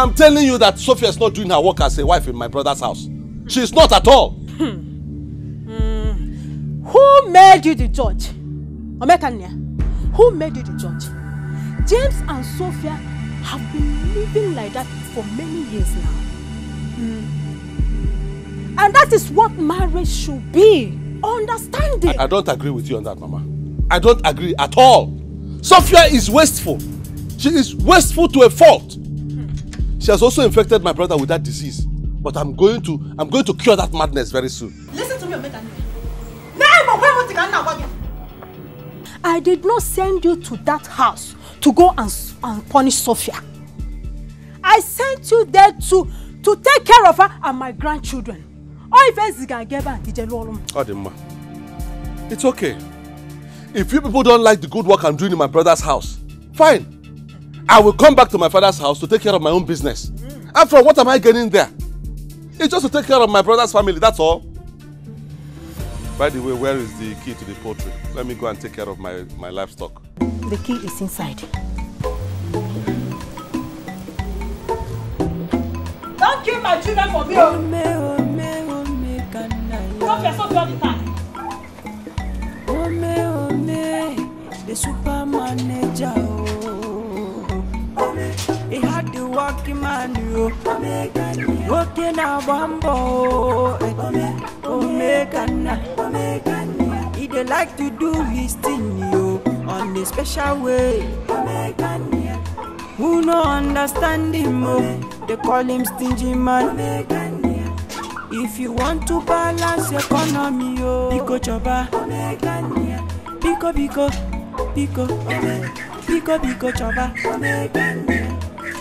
I'm telling you that Sophia is not doing her work as a wife in my brother's house. She is not at all. Hmm. Mm. Who made you the judge? Omekania, who made you the judge? James and Sophia have been living like that for many years now. Mm. And that is what marriage should be. Understanding. I, I don't agree with you on that, Mama. I don't agree at all. Sophia is wasteful. She is wasteful to a fault. She has also infected my brother with that disease. But I'm going to I'm going to cure that madness very soon. Listen to me, Omega. I did not send you to that house to go and, and punish Sophia. I sent you there to to take care of her and my grandchildren. All events is gonna get back to Adema. It's okay. If you people don't like the good work I'm doing in my brother's house, fine. I will come back to my father's house to take care of my own business. Mm. After all, what am I getting there? It's just to take care of my brother's family, that's all. By the way, where is the key to the poultry? Let me go and take care of my, my livestock. The key is inside. Don't kill my children for me! Oh. Stop yourself all the time! The super manager. Oh working man you working a Omega, Omegana He dey like to do his thing yo, on a special way Who no understand him oh They call him stingy man If you want to balance economy yo Pico choba Pico pico Pico Pico pico choba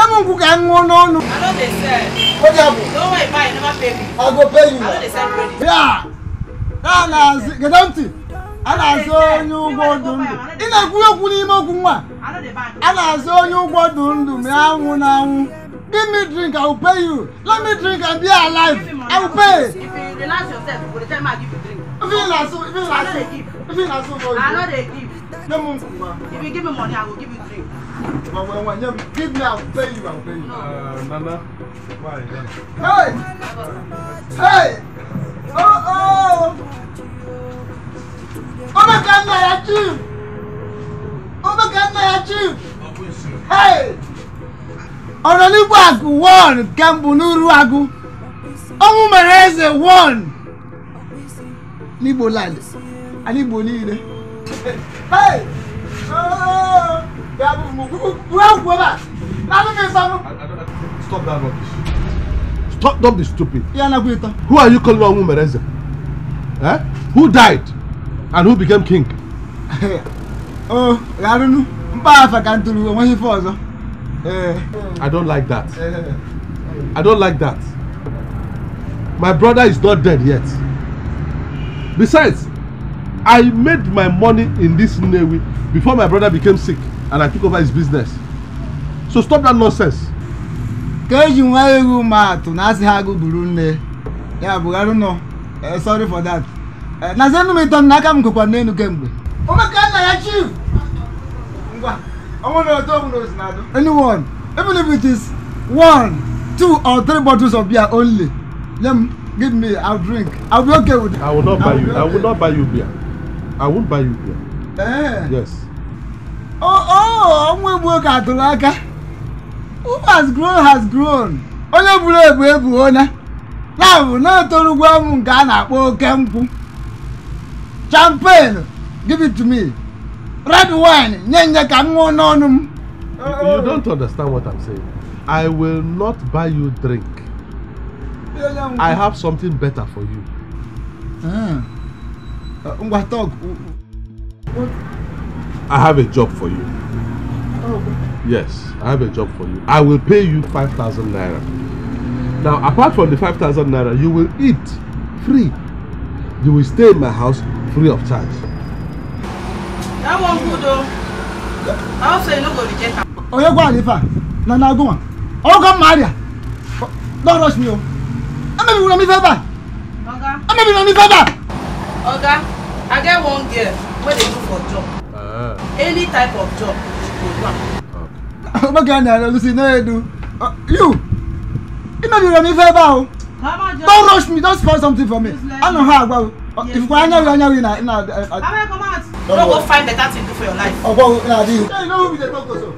Let me cook and go no no. I know they sell. What happened? Don't worry, buy. Never pay me. I'll go pay you. I know they sell credit. Yeah. Nah, nah. Get empty. a na-azụ onye ụgbọ ọdụ ndụ ị na-ekwu okwu n'ime okwu nwa a na-azụ onye ụgbọ ọdụ give me drink i will pay you let me drink and be alive i will pay if you relax yourself for the time i give you drink if you na if you na so if you na i know they give no mu if you give me money i will give But when one young give me, I'll pay you, I'll pay you. Uh, Nana. Why? Oh, my God, my achieve! Oh, my God, my achieve! Hey! Honorable Agu won, Gambunuru Agu. Ọmú mẹ̀rẹ̀ ẹsẹ̀ won. Níbo láàlẹ̀? Àníbo Hey! Oh! Stop that rubbish. Stop, don't be stupid. Who are you calling Awu Mereze? Eh? Who died? And who became king? oh, I don't know. I don't like that. Eh. I don't like that. My brother is not dead yet. Besides, I made my money in this Nnewi before my brother became sick and I took over his business. So stop that nonsense. ka eji nwa ewu ma na asị ha agụ gburu nne ya bụgharị sorry for that enu m ịtọ m n'aka m ya chief ngwa ọnwụ na otu ọbụla na-adụ anyone even if it is one two or three bottles of beer only nye m give me i'll drink i'll be okay with it. i will not buy you i will not buy you beer i won't buy you beer. Eh. yes. Oh nwa egbuo ka atụrụ aka who has grown has grown onye buru ebu ebuona na bụ na-etorugwu ọmụ nke a na-akpọ oke nkwụ champagne give it to me red wine nye nye ka m ṅụọ n'ọnụ m you don't understand what i'm saying i will not buy you drink i have something better for you ah. ngwa talk I have a job for you. Oh. Yes, I have a job for you. I will pay you 5,000 naira. Now, apart from the 5,000 naira, you will eat free. You will stay in my house free of charge. That one good though. I also you no go reject Oh, you go Alifa, na na go on. Oh go Maria. Don't rush me oh. I'm bi una mi fẹ́ bá. Oga. Ame bi una mi fẹ́ bá. Oga, I get one girl Where they look for job any type of job she go do am. make i na lucy no edu uh, you e no be remi favour o don rush me don spoil something for me i no how agbawo if you go know you na. abeg come out. no go find better thing do for your life. ọgbọ́n na di you. ṣé you know who be the talk so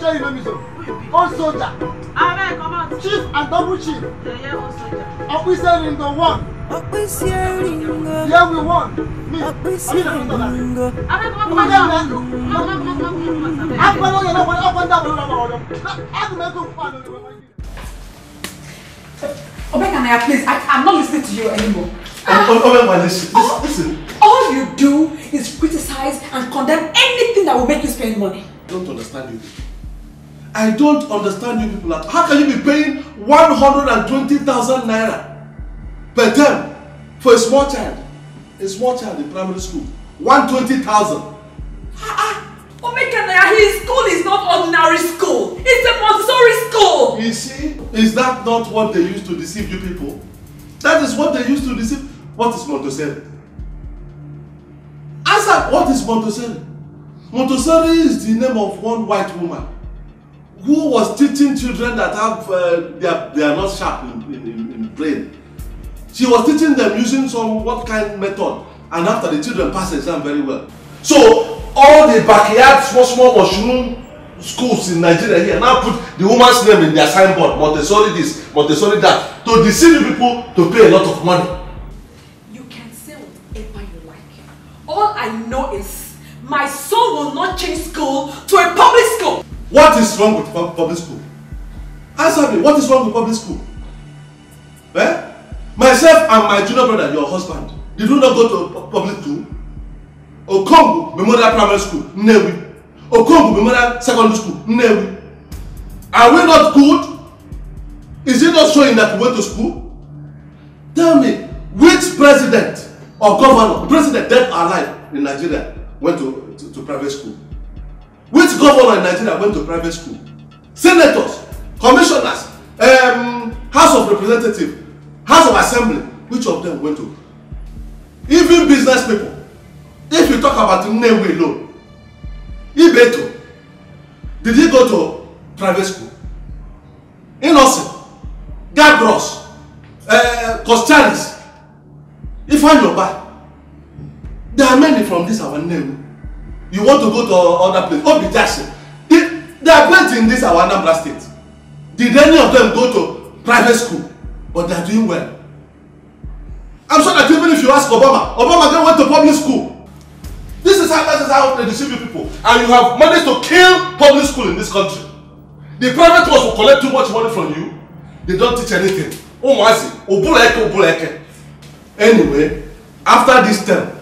ṣé you know me so old soldier. Ààrẹ kan máa Chief and double chief. Yẹ̀yẹ́ old soldier. Ọ̀písẹ́ ringo one. Ọ̀písẹ́ ringo. Yẹ́ we won. Mi, àbí ìdàgbàsókè náà. Ààrẹ kan máa tún. Àpẹẹrẹ yẹn lọ́wọ́ ọkọ̀ ní àbúrò lọ́wọ́ ọ̀dọ́. Láti mẹ́tò fún àná ìwé wáyé. Obekanaya, please, I, I'm not listening to you anymore. Oh, oh, oh, Obekanaya, listen, listen. All you do is criticize and condemn anything that will make you spend money. I don't understand you. I don't understand you people. How can you be paying 120,000 naira per term for a small child? A small child in primary school. 120,000. Ah, ah. Omekanaya, his school is not ordinary school. It's a Montessori school. You see, is that not what they used to deceive you people? That is what they used to deceive. What is Montessori? Answer, what is Montessori? Montessori is the name of one white woman who was teaching children that have uh, they, are, they are not sharp in, in, in, brain she was teaching them using some what kind method and after the children pass exam very well so all the backyard small small mushroom schools in nigeria here now put the woman's name in their signboard montessori this montessori that to deceive people to pay a lot of money. you can say whatever you like all i know is my son will not change school to a public school. What is wrong with public school? Answer me, what is wrong with public school? Eh? Myself and my junior brother, your husband, did you not go to public school? Okongu Memorial Primary School, Nnewi. Okongu Memorial Secondary School, Nnewi. Are we not good? Is it not showing that we went to school? Tell me, which president or governor, president dead or alive in Nigeria, went to, to, to private school? which governor in nigeria went to private school senators commissioners um, house of representatives house of assembly which of them went to even business people if you talk about nnewi alone ibeto did he go to private school innocent gabros uh, costalis ifanyoba there are many from this our nnewi you want to go to other place no oh, be they they are great in this our anambra state did any of them go to private school but they are doing well i'm sure that even if you ask obama obama then went to public school this is how this is how they deceive you people and you have managed to kill public school in this country the private ones will collect too much money from you they don't teach anything umuazi obuleke obuleke anyway after this term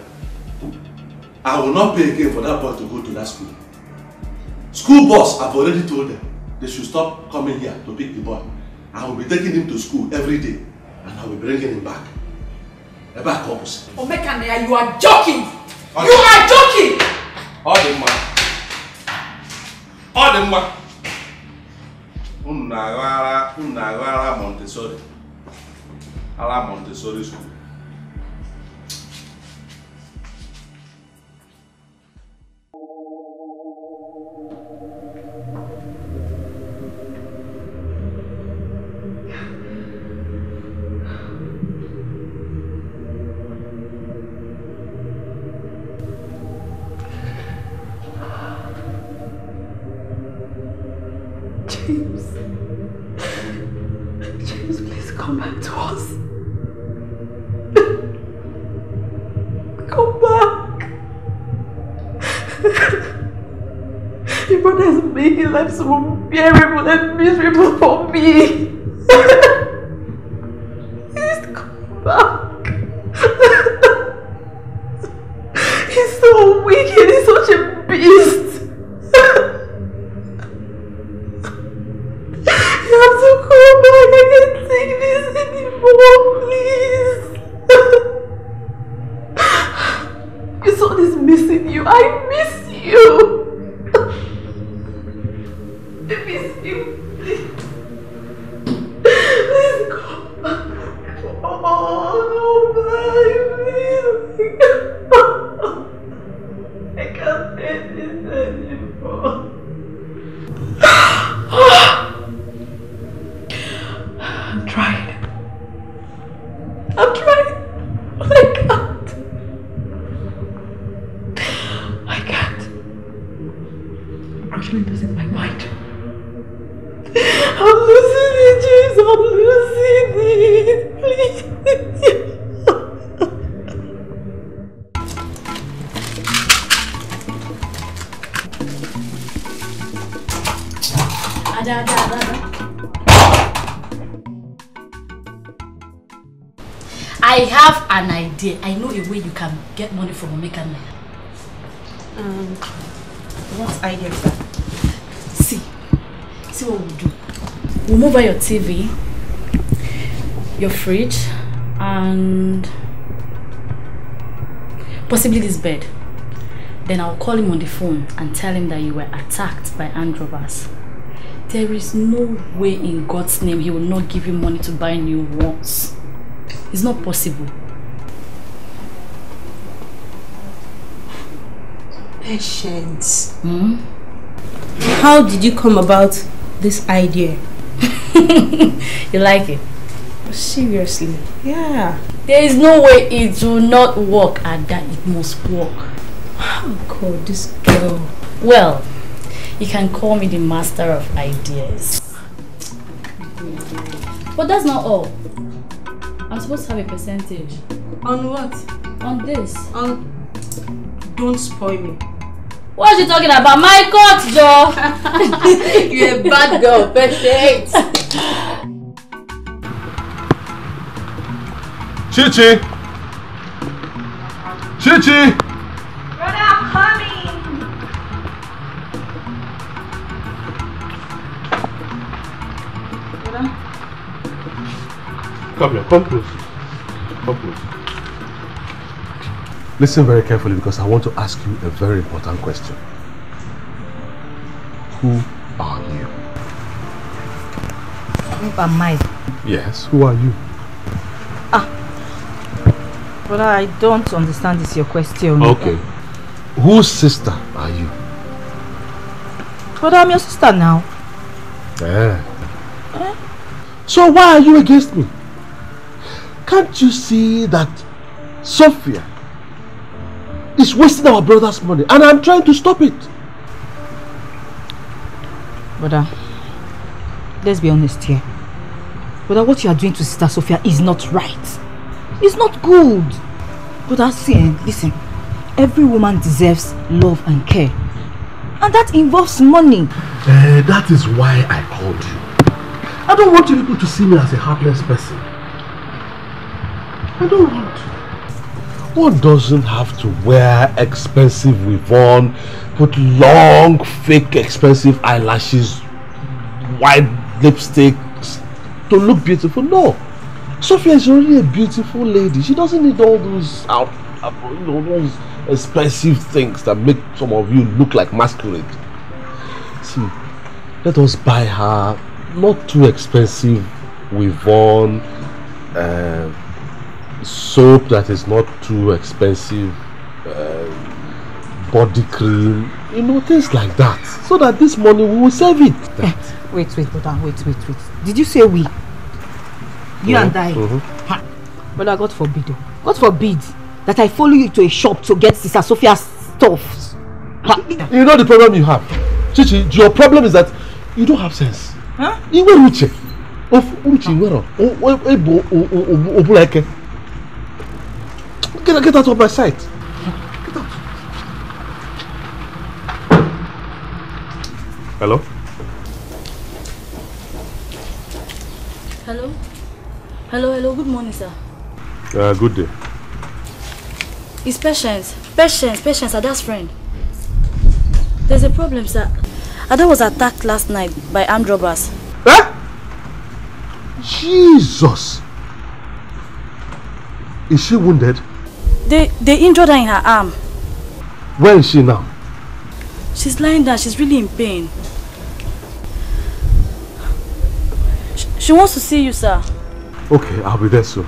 I will not pay again for that boy to go to that school. School boss, I've already told them they should stop coming here to pick the boy. I will be taking him to school every day and I will be bringing him back. A back opposite. Omekania, you are joking! Okay. You are joking! All the man. All the man. Unna Rara, Montessori. Ala Montessori school. the miserable for me. Please come back. he's so wicked, he's such a beast. you have to come back, I can't take this anymore, please. your son is missing you, I miss you. get money from Omeka now. Um, once I get back. See, see what we'll do. We'll move out your TV, your fridge, and possibly this bed. Then I'll call him on the phone and tell him that you were attacked by androvers. There is no way in God's name he will not give you money to buy new ones. It's not possible. patient. Hmm? How did you come about this idea? you like it? Seriously? Yeah. There is no way it will not work and that it must work. Oh God, this girl. Well, you can call me the master of ideas. But that's not all. I'm supposed to have a percentage. On what? On this. On... Don't spoil me. What are you talking about? My court, Joe! You're a bad girl, perfect! Chichi! Chichi! Brother, I'm Come here, come close. Come close. Listen very carefully because I want to ask you a very important question. Who are you? Who am I? Yes, who are you? Ah, But I don't understand this your question. Okay. Whose sister are you? But I'm your sister now. Yeah. Eh? So why are you against me? Can't you see that Sophia is wasting our brother's money and I'm trying to stop it. Brother, let's be honest here. Brother, what you are doing to Sister Sophia is not right. It's not good. Brother, see, eh, listen. Every woman deserves love and care. And that involves money. Uh, that is why I called you. I don't want you people to see me as a heartless person. I don't want one doesn't have to wear expensive Revon, put long, fake, expensive eyelashes, white lipsticks to look beautiful. No. Sophia is already a beautiful lady. She doesn't need all those out, uh, you know, those expensive things that make some of you look like masquerade. See, let us buy her not too expensive Revon. Uh, soap that is not too expensive um, body cream you know things like that so that this money we will save it. Eh, wait wait madam wait wait wait did you say we. you yeah. and I. Mm -hmm. brother God forbid o oh. God forbid that I follow you to a shop to get Sister Sophia's stuff. you know the problem you have Chichi your problem is that you don't have sense. Huh? You Iwe uche of uche iwero ebo obuleke. Get, get out of my sight. Get out. Hello? Hello? Hello, hello. Good morning, sir. Uh, good day. It's Patience. Patience, Patience, Ada's friend. There's a problem, sir. Ada was attacked last night by armed robbers. Eh? Jesus! Is she wounded? They, they injured her in her arm. Where is she now? She's lying down. She's really in pain. She, she wants to see you, sir. Okay, I'll be there soon.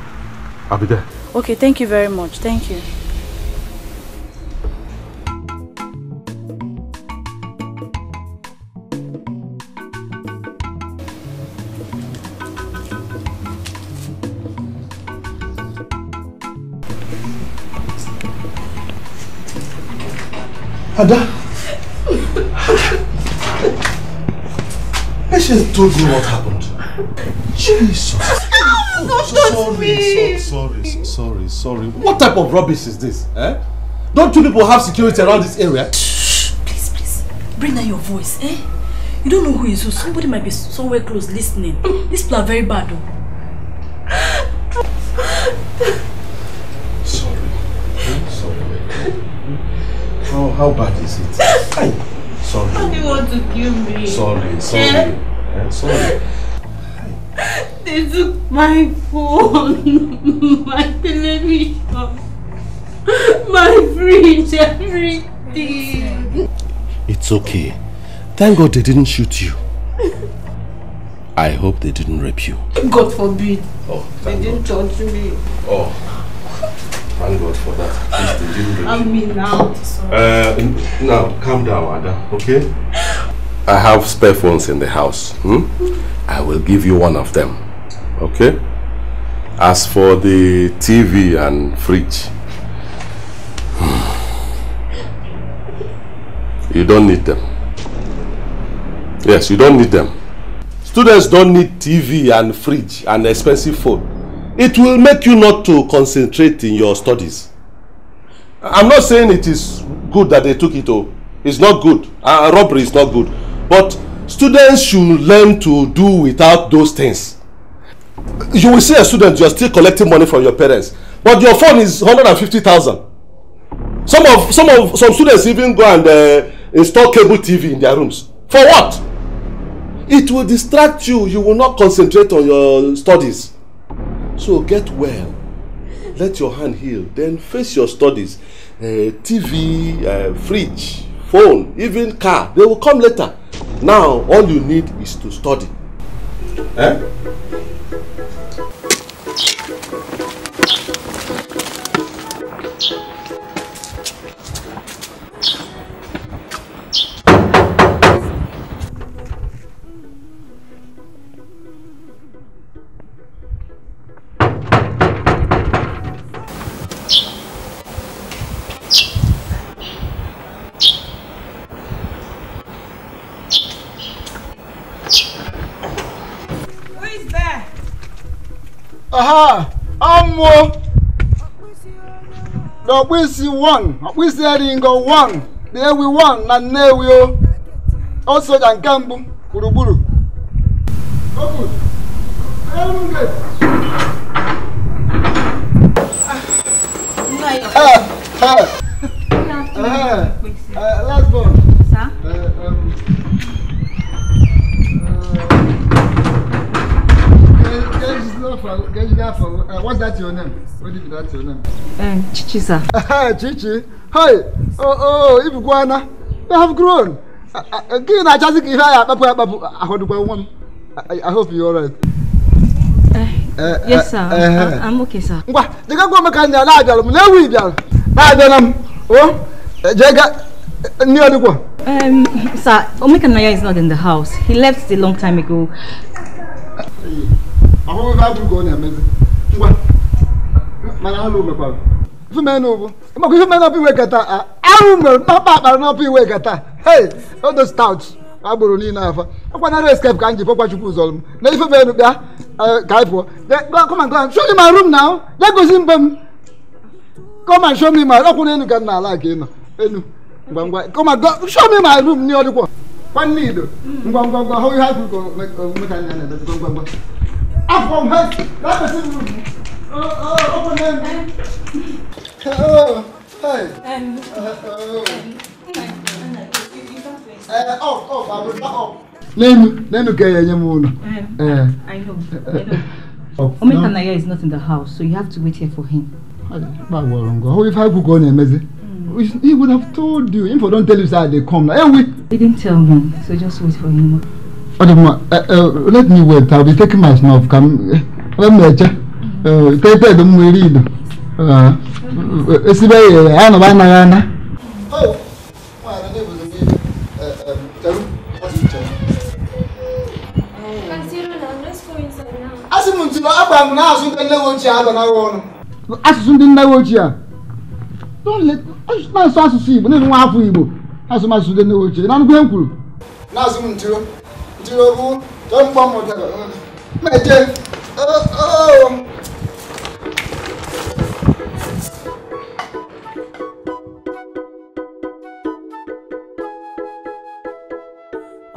I'll be there. Okay, thank you very much. Thank you. Ada. Patience told you what happened. Jesus. Oh, God, sorry, me. So, sorry, sorry, sorry. What type of rubbish is this? Eh? Don't you people have security around this area? please, please. Bring down your voice, eh? You don't know who is who. Somebody might be somewhere close listening. This plan very bad, though. How bad is it? Ay, sorry. How do you want to kill me? Sorry, eh? sorry. Yeah. Yeah, sorry. They took my phone, my television, my fridge, everything. It's okay. Thank God they didn't shoot you. I hope they didn't rape you. God forbid. Oh, they didn't God. touch me. Oh. Thank God for that. Please, I mean now. Uh, now, calm down, Ada, okay? I have spare phones in the house. Hmm? I will give you one of them, okay? As for the TV and fridge, you don't need them. Yes, you don't need them. Students don't need TV and fridge and expensive phone. it will make you not to concentrate in your studies i'm not saying it is good that they took it o oh. it's not good uh, robbery is not good but students should learn to do without those things you will see a student you are still collecting money from your parents but your phone is hundred thousand some of some of some students even go and uh, install cable tv in their rooms for what it will distract you you will not concentrate on your studies So get well. Let your hand heal. Then face your studies. Uh, eh, TV, uh, eh, fridge, phone, even car. They will come later. Now, all you need is to study. Eh? aha amụọ n'ọkpụisi 1 ọkpụisi eringo 1 na ewi 1 na nnewi o o soja nke mbụ gburugburu Hey! Uh, what's that your name? What is that your name? Um, Chichi, sir. Chichi? Hi! Oh, oh, Ibuguana, uh, you have grown. Again, I just give her a one. I hope you're all right. Uh, yes, sir. Uh, uh, I'm okay, sir. Ngwa, The gwa makanya na abịalụ m na ewu ịbịalụ. Na abịala m. jega ndị ọdịkwa. Um, sir, Omeka is not in the house. He left a long time ago. ahụhụ atụrụ ka ọ na-emezi ngwa mana alụ mekwara maka ife iwe mkpakpa akpara n'ọpụ iwe kata hei odo stout niile akwanara escape ka m ji chukwu ụzọ m na ife bịa ka anyị pụọ come and show me my ya gosi mbe m ọkwụ na-ala ka ị nọ ngwa ngwa come and show me my room kwanne ido ngwa ngwa ngwa hụ ihe Up from her. That person will oh, uh, open hand. Oh, hey. Um, uh, oh. Uh, up, up, I will not up. Nenu, Nenu kaya nyamuno. Um, eh. I know, eh, I know. Oh, eh. Omeka no. Naya is not in the house, so you have to wait here for him. How if I could go on mm. He would have told you. If I don't tell you, sir, they come. Anyway. He didn't tell me, so just wait for him ọdụmma eh, eh, let me wait i'll be taking my snuff ka m emecha teted m nwere ido esibe yere ya nọba anaghị ana asụsụ ndị nnawe ochie a na-asụ asụsụ igbo na-enwe afọ igbo asụmasụ ndị nnawe ochie na ngwe m kwuru na-asụ m ntiro tinubu tó ń pọ́n mọ̀ dàgbà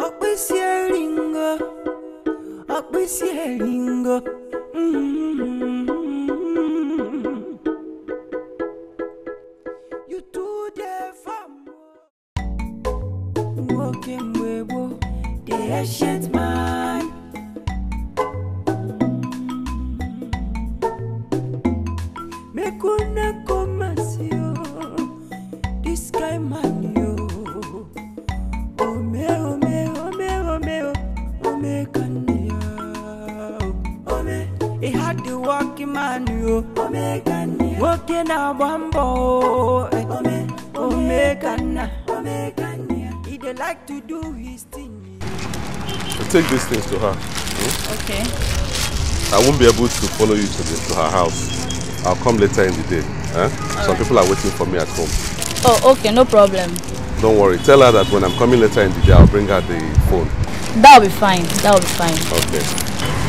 Ọ̀pẹ̀sì ẹ̀rìngọ̀ ọ̀pẹ̀sì ẹ̀rìngọ̀. take these things to her. Hmm? Okay. I won't be able to follow you to, the, to her house. I'll come later in the day. Eh? Some right. people are waiting for me at home. Oh, okay, no problem. Don't worry. Tell her that when I'm coming later in the day, I'll bring her the phone. That'll be fine. That'll be fine. Okay.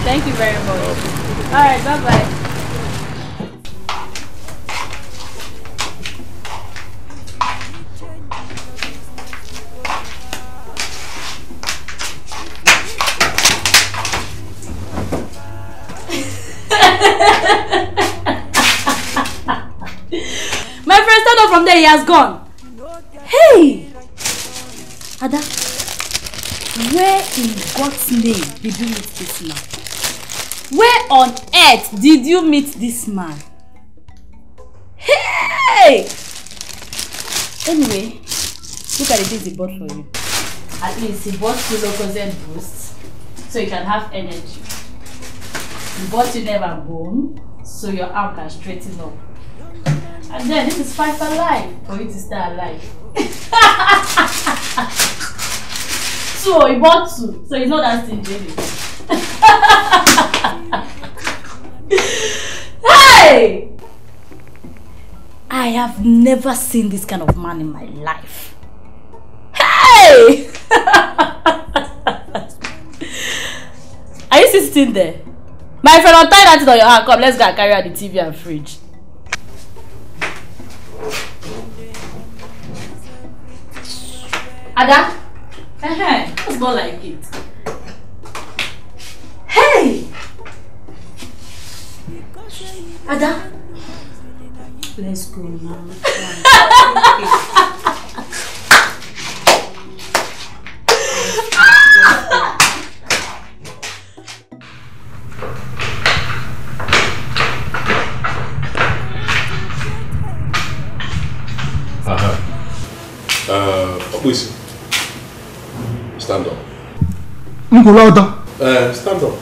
Thank you very much. Okay. All right, bye-bye. say he has gone. Hey! Ada, where in God's name did you meet this man? Where on earth did you meet this man? Hey! Anyway, look at the things he bought for you. At least he bought two Locozen boosts so you can have energy. He bought you never bone so your arm can straighten up. And then this is five for life for you to stay alive. So he bought two, so he's not that stingy. hey! I have never seen this kind of man in my life. Hey! Are you still sitting there? My friend, I'll tie that on your hand. Come, let's go and carry out the TV and fridge. Ada? Eh, it's more like it. Hey! Ada? Let's go now. Aha. Uh, ọ̀pọ̀ ìsìn stand up. n kò lọ́wọ́ tán. stand up.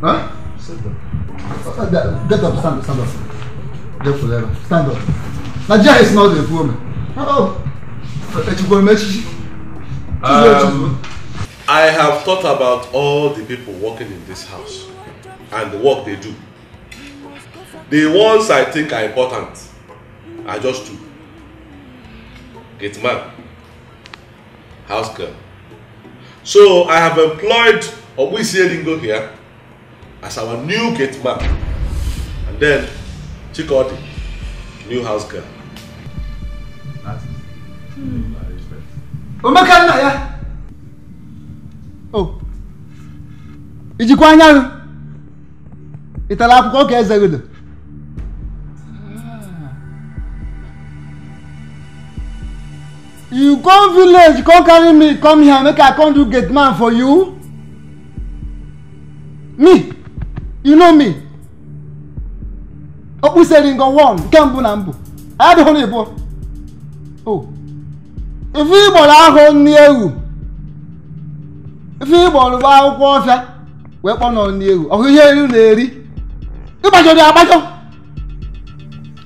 Huh? Stand up. Get up, stand up, stand up. Get up. there. Stand up. Nigeria is not a poor man. Oh, um, I have thought about all the people working in this house and the work they do. The ones I think are important I just two gate man house girl so i have employed obuisie Lingo here as our new gate man and then chikodi new house girl. omeka nna ya o ijikwa anyanwụ ị tara akwụkwọ ka eze godo you come village come carry me come here make i come do gate man for you me you know me okpuseringo one nke mbụ na mbụ adịghị na igbo o oh. ife igboro ahụ nni ewu ife igboro bụ akwụkwọ ọfịa wee kpọnọ nni ewu ọhụ oh, ihe elu na-eri ịgbajọrọ agbajọ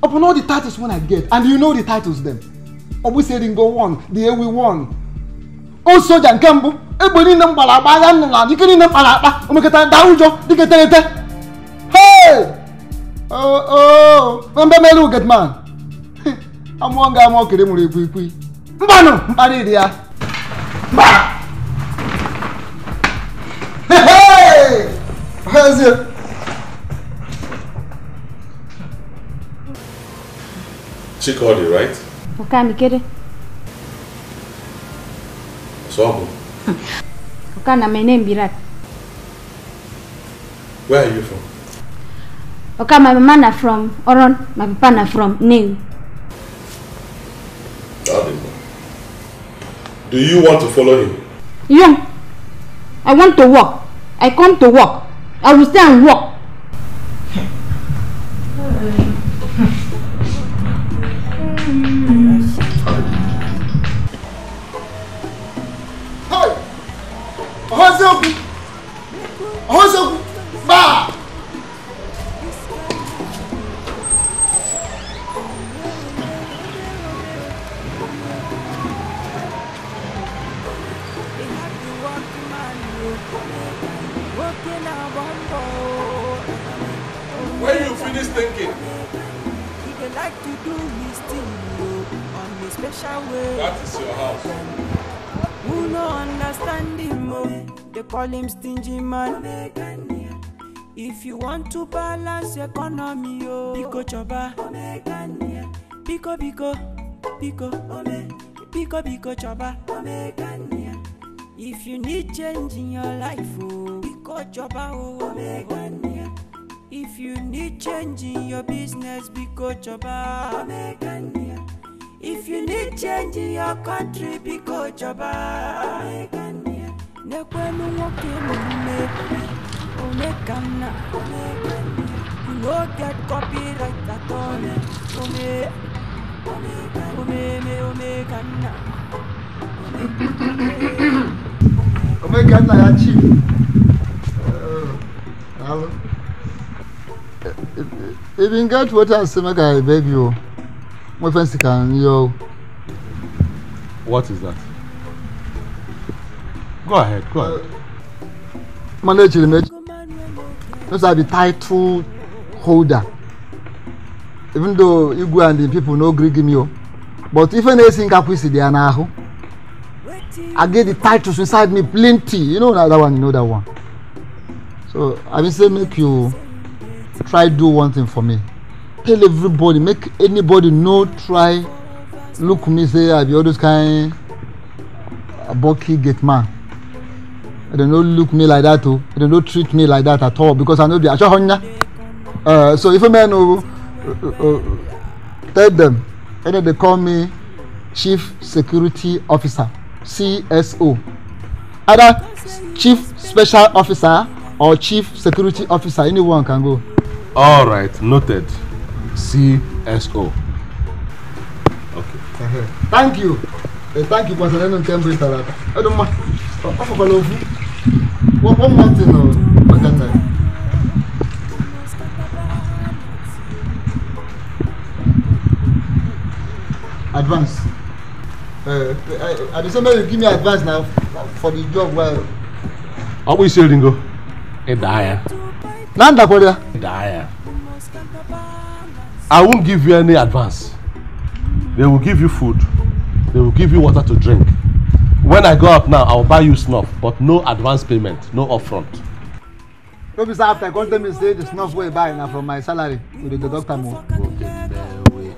upon all the titles when i get and you know the titles them ọ bụ Seringo one the Ewi one o soja nke mbụ egbe niile m gbara akpa agha nna na dike niile m kpara akpa omekọtara daa ụjọ dịka terete na mbe mere ugetman amụọ nga amụọ kere mụrụ ikwu ikwu mbanụ mkparị dị ya ezie oh, oh. Chikodi, right? ukamikere sobo ukana my name birat where are you from okay my mama na from oron my papa na from new do you want to follow him yeah i want to work i come to work i will stay and work ọ̀hún ṣẹ́gun ọ̀hún call him stingy man. If you want to balance economy, oh. Pico choba. Pico pico. Pico. Pico pico choba. If you need change in your life, oh. Pico choba, oh, oh, oh. If you need change in your business, Pico choba. If you need change in your country, Pico choba n'ekwenu nwoke n'ume one ka nna you no get copyright at all ome omeme omeka nna omeka nna ya chief Hello. if you get water asema ka i beg you My friends can n what is that. Go ahead, go ahead. Monday Chirimechi. Those are the title holder. Even though Igwe and the people no gree give me o. Oh. But if any sin caprice they are now. I get the titles inside me plenty. You know that one, you know that one. So I will say make you try do one thing for me. Tell everybody, make anybody no try look me say I be all those kind of uh, bulky gate man. They don't look me like that o oh. They don't treat me like that at all because i no be asohonya uh, so if a man o oh, uh, uh, tell them, and then they call me chief security officer cso either chief special officer or chief security officer anyone can go. all right noted cso okay. Uh-huh. thank you tanki kwasara enu nke mbụ tara aka ọdụ mma ọfọkwala ofu wọmọtin maka nna ya advance uh, uh at the same time you give me advance na for the job well. ọ bụ isi eringo ịdaa ya na ndakwara ya ịdaa ya i won't give you any advance they will give you food they will give you water to drink. When I go up now, I will buy you snuff, but no advance payment, no upfront. No be say after come tell me say the snuff will buy now from my salary with the doctor deduct Okay, o. nwoke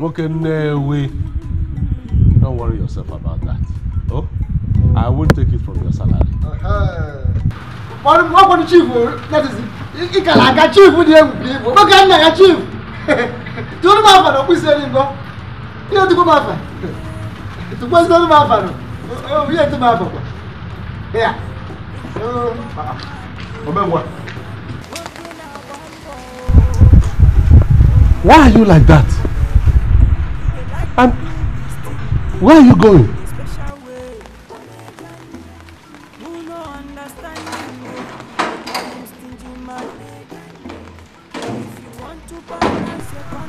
Okay, nwoke nnewe don't worry yourself about that oh i won take it from your salary. Uh-huh. What kọ́ ni chief that is it àga chief ni ewu ni ewu nwoke nna ya chief tí ó ní máa fà lọ́kùn sí ẹni gbọ́ kí ló ti kó máa Tu puoi stare ma fanno. Oh, via tu ma papà. Via. Oh, papà. Vabbè, Why are you like that? And where are you going?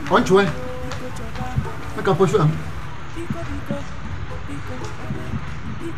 Aren't you? Make a push up.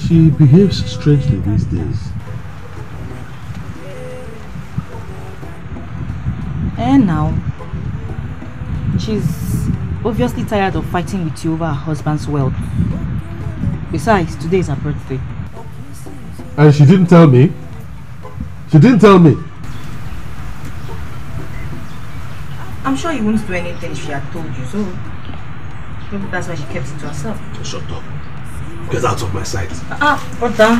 She behaves strangely these days. And now, she's obviously tired of fighting with you over her husband's wealth. Besides, today is her birthday. And she didn't tell me? She didn't tell me? I'm sure you wouldn't do anything she had told you, so maybe that's why she kept it to herself. Shut up. Get out of my sight. Ah, brother.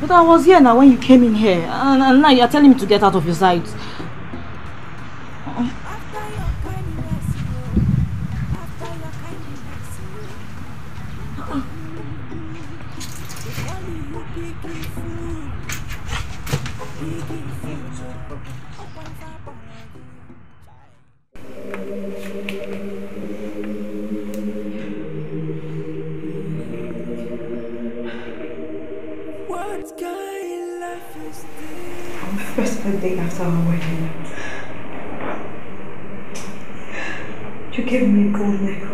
But I was here now when you came in here, and, and now you're telling me to get out of your sight. On the first day after our wedding, you gave me a gold necklace.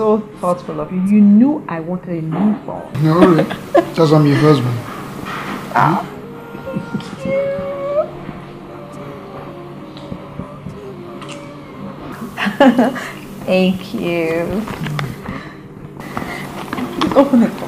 so thoughtful of you. You knew I wanted a new phone. No, really? Just I'm your husband. Ah. Thank you. open it.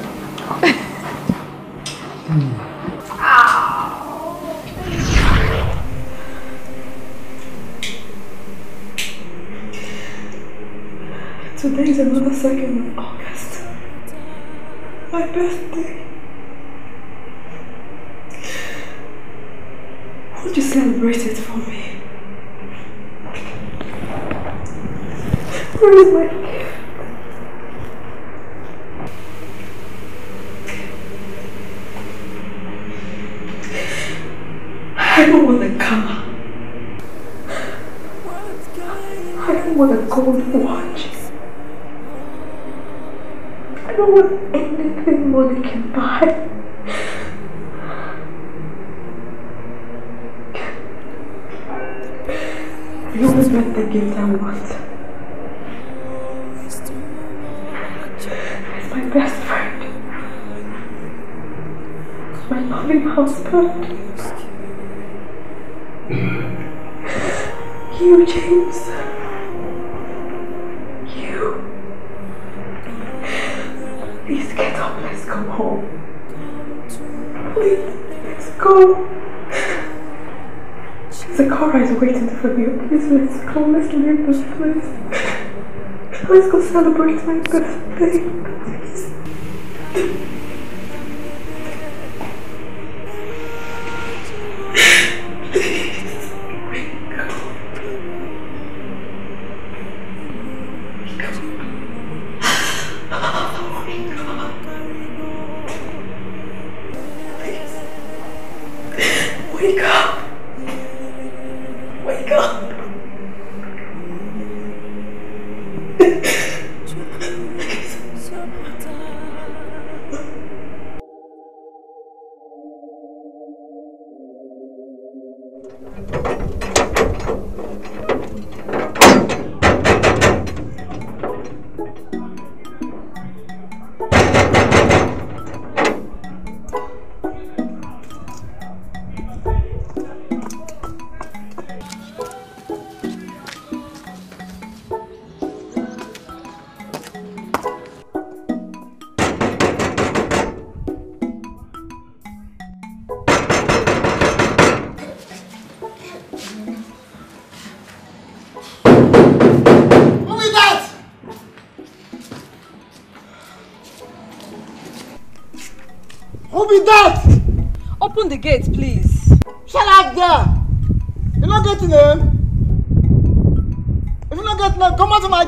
Let's call Mr. Nichols, please. Let's go celebrate my birthday, please.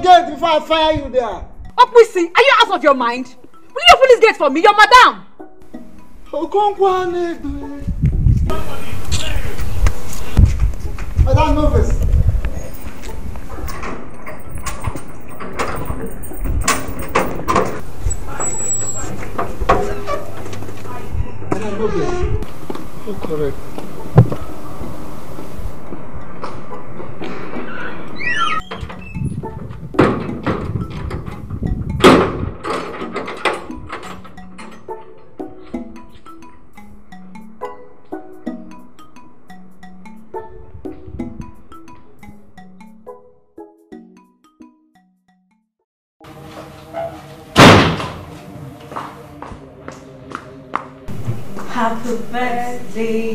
gate before I fire you there. Opisi, are you out of your mind? Will you open this gate for me? You're madam. Okonkwa Negbe. they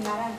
Gracias.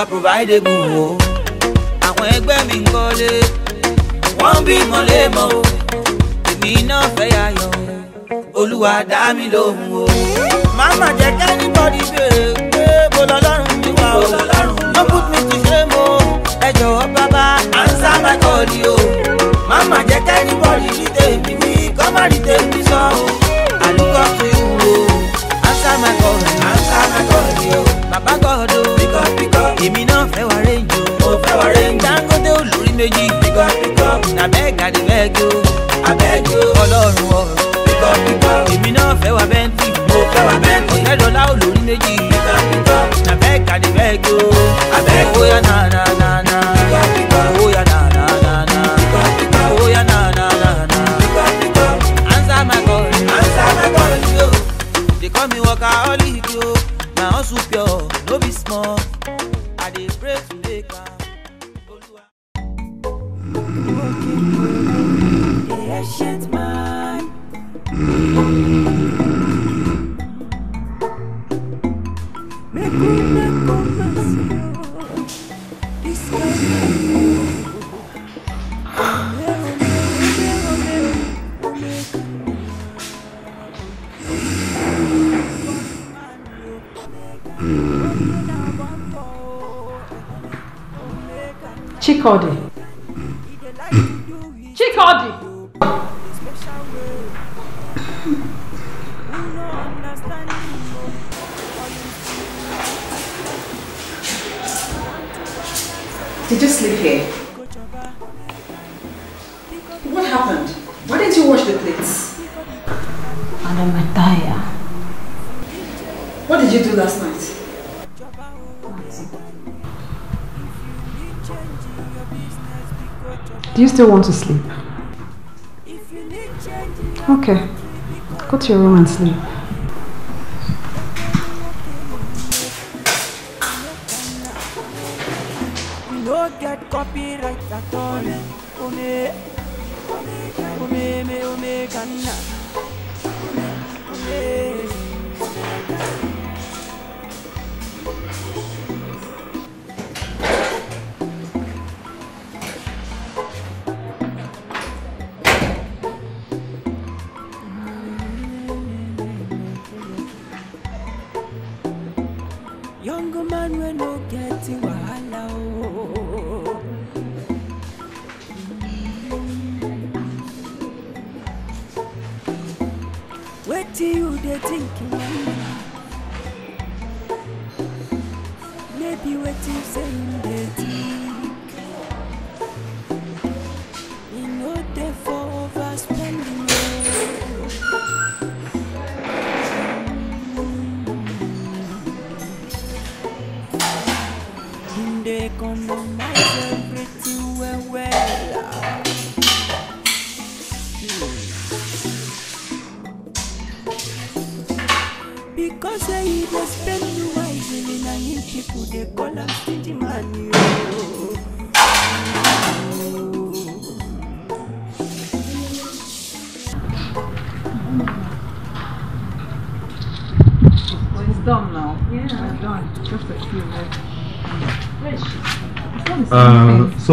wa provide egun o. àwọn ẹgbẹ́ mi ń kọ́lé wọ́n ń bímọ léèmọ̀ o èmi náà fẹ́ yàyọ̀ olúwa dá mi lóhùn o. màmá jẹ́ kẹ́ni bọ́dí bèrè pé mo lọ lọ́rùn mi o no put me to shame o ẹ jọ̀wọ́ bàbá answer my call o màmá jẹ́ kẹ́ni bọ́dí ní tèmi ní kọ́ má rí tèmi. abeg adibeg o abeg o ọlọ́run ọ̀rọ̀ pípọ̀ pípọ̀ èmi náà fẹ́ wa bẹ́ntì mo fẹ́ wá bẹ́ntì ọ̀tẹ́dọ̀lá olórí méjì pípọ̀ pípọ̀ abeg adibeg o abeg o yànnà. What did you do last night? Do you still want to sleep? Okay. Go to your room and sleep.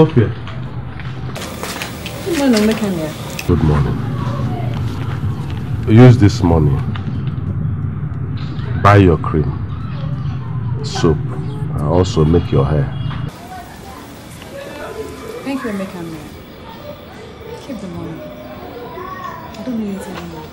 Good morning, Good morning. Use this money. Buy your cream, soap, and also make your hair. Thank you, Mekanya. Keep the money. I don't need it anymore.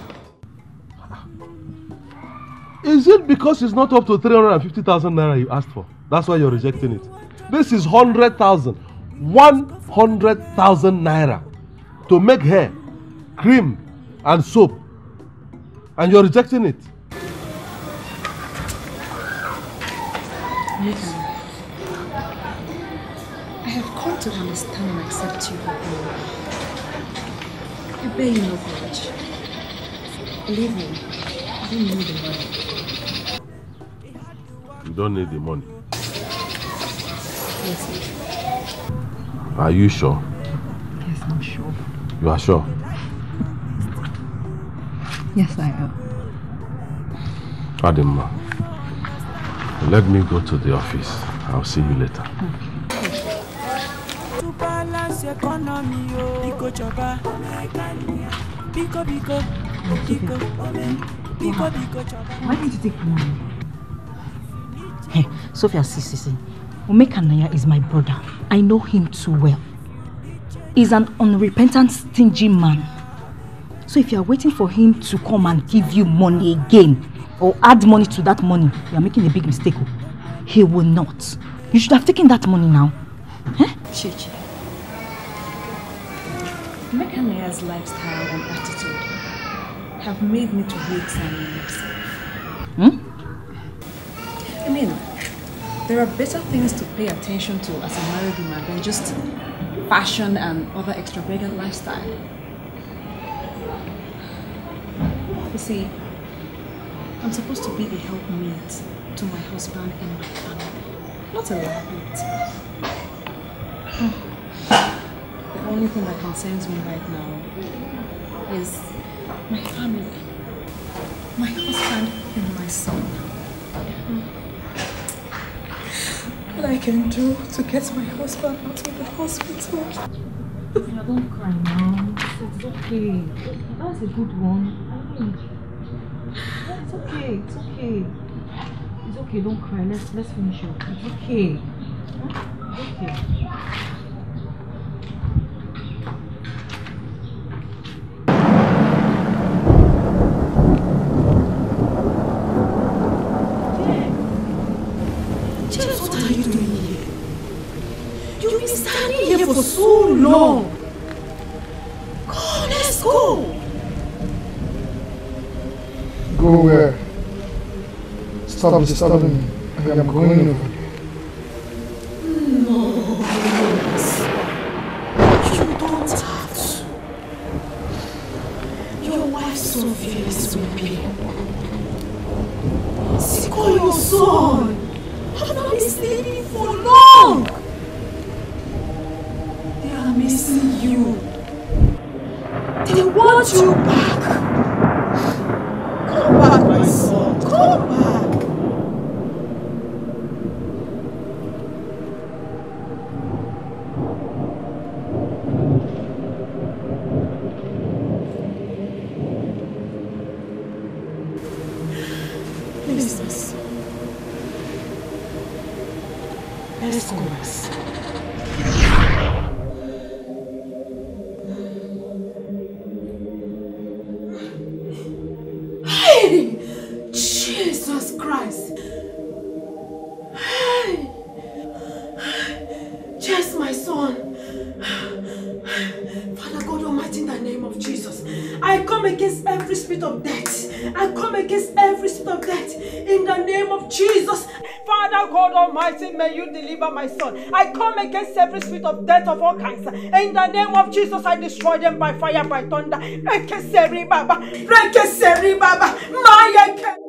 Is it because it's not up to 350,000 naira you asked for? That's why you're rejecting it. This is 100,000. 100,000 naira to make hair, cream, and soap, and you're rejecting it. Nathan, I have come to understand and accept you I bear you no grudge. Believe me, I don't need the money. You don't need the money? Are you sure? Yes, I'm sure. You are sure? Yes, I am. Adema, let me go to the office. I'll see you later. Okay. Why did you take money? Hey, Sophia, see, see, see. Omekanaya is my brother. I know him too well. He's an unrepentant, stingy man. So if you are waiting for him to come and give you money again, or add money to that money, you are making a big mistake. Oh. He will not. You should have taken that money now. Huh? Eh? Chichi. Mekanaya's lifestyle and attitude have made me to hate Sammy myself. Hmm? I mean, there are better things to pay attention to as a married woman than just fashion and other extravagant lifestyle. You see, I'm supposed to be a helpmate to my husband and my family, not a liability. The only thing that concerns me right now is my family, my husband and my son. What I can do to get my husband out of the hospital. don't cry now. It's okay. That's a good one. It's okay. It's okay. It's okay. Don't cry. Let's let's finish up. It's okay. It's okay. No! Go, let's go! Go where? Stop disturbing me. I am going over. my son. I come against every spirit of death of all kinds. In the name of Jesus, I destroy them by fire, by thunder. Break Rekeseri Baba, Rekeseri Baba, Maya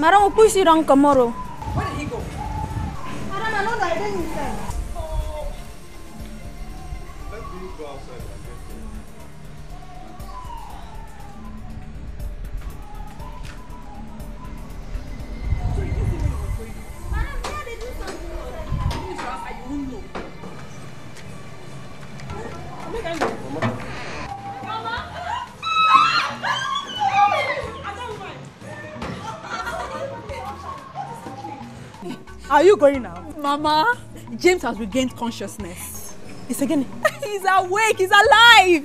marang upui sirang kamoro going now? Mama, James has regained consciousness. He's again. He's awake. He's alive.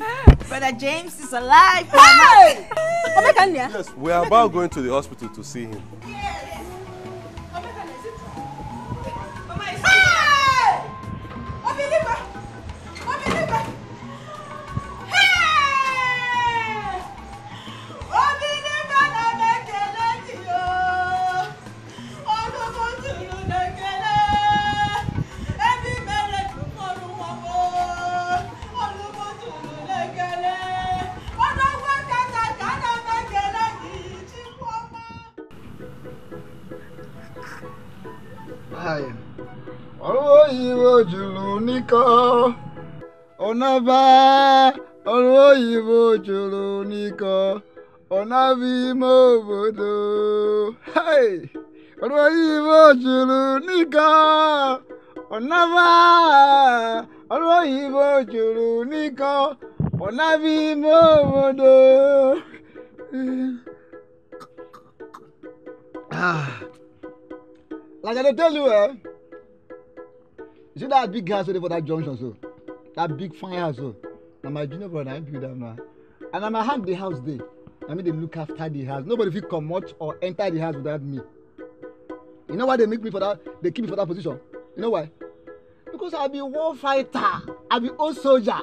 Brother James is alive. Mama. Hey! yes, we are about going to the hospital to see him. biko ọnaba ọrụ oyibo jụrụ n'iko ọnaba ime obodo ọrụ oyibo jụrụ n'iko ọnaba ọrụ oyibo jụrụ n'iko ọnaba ime obodo ah. lagade telu eh you see that big gas wey dey for that junction so that big fire so na my junior brother na him build am na and I'm a hand the house dey I mean, they look after the house nobody come comot or enter the house without me you know why they make me for that they keep me for that position you know why because i be war fighter i be old soldier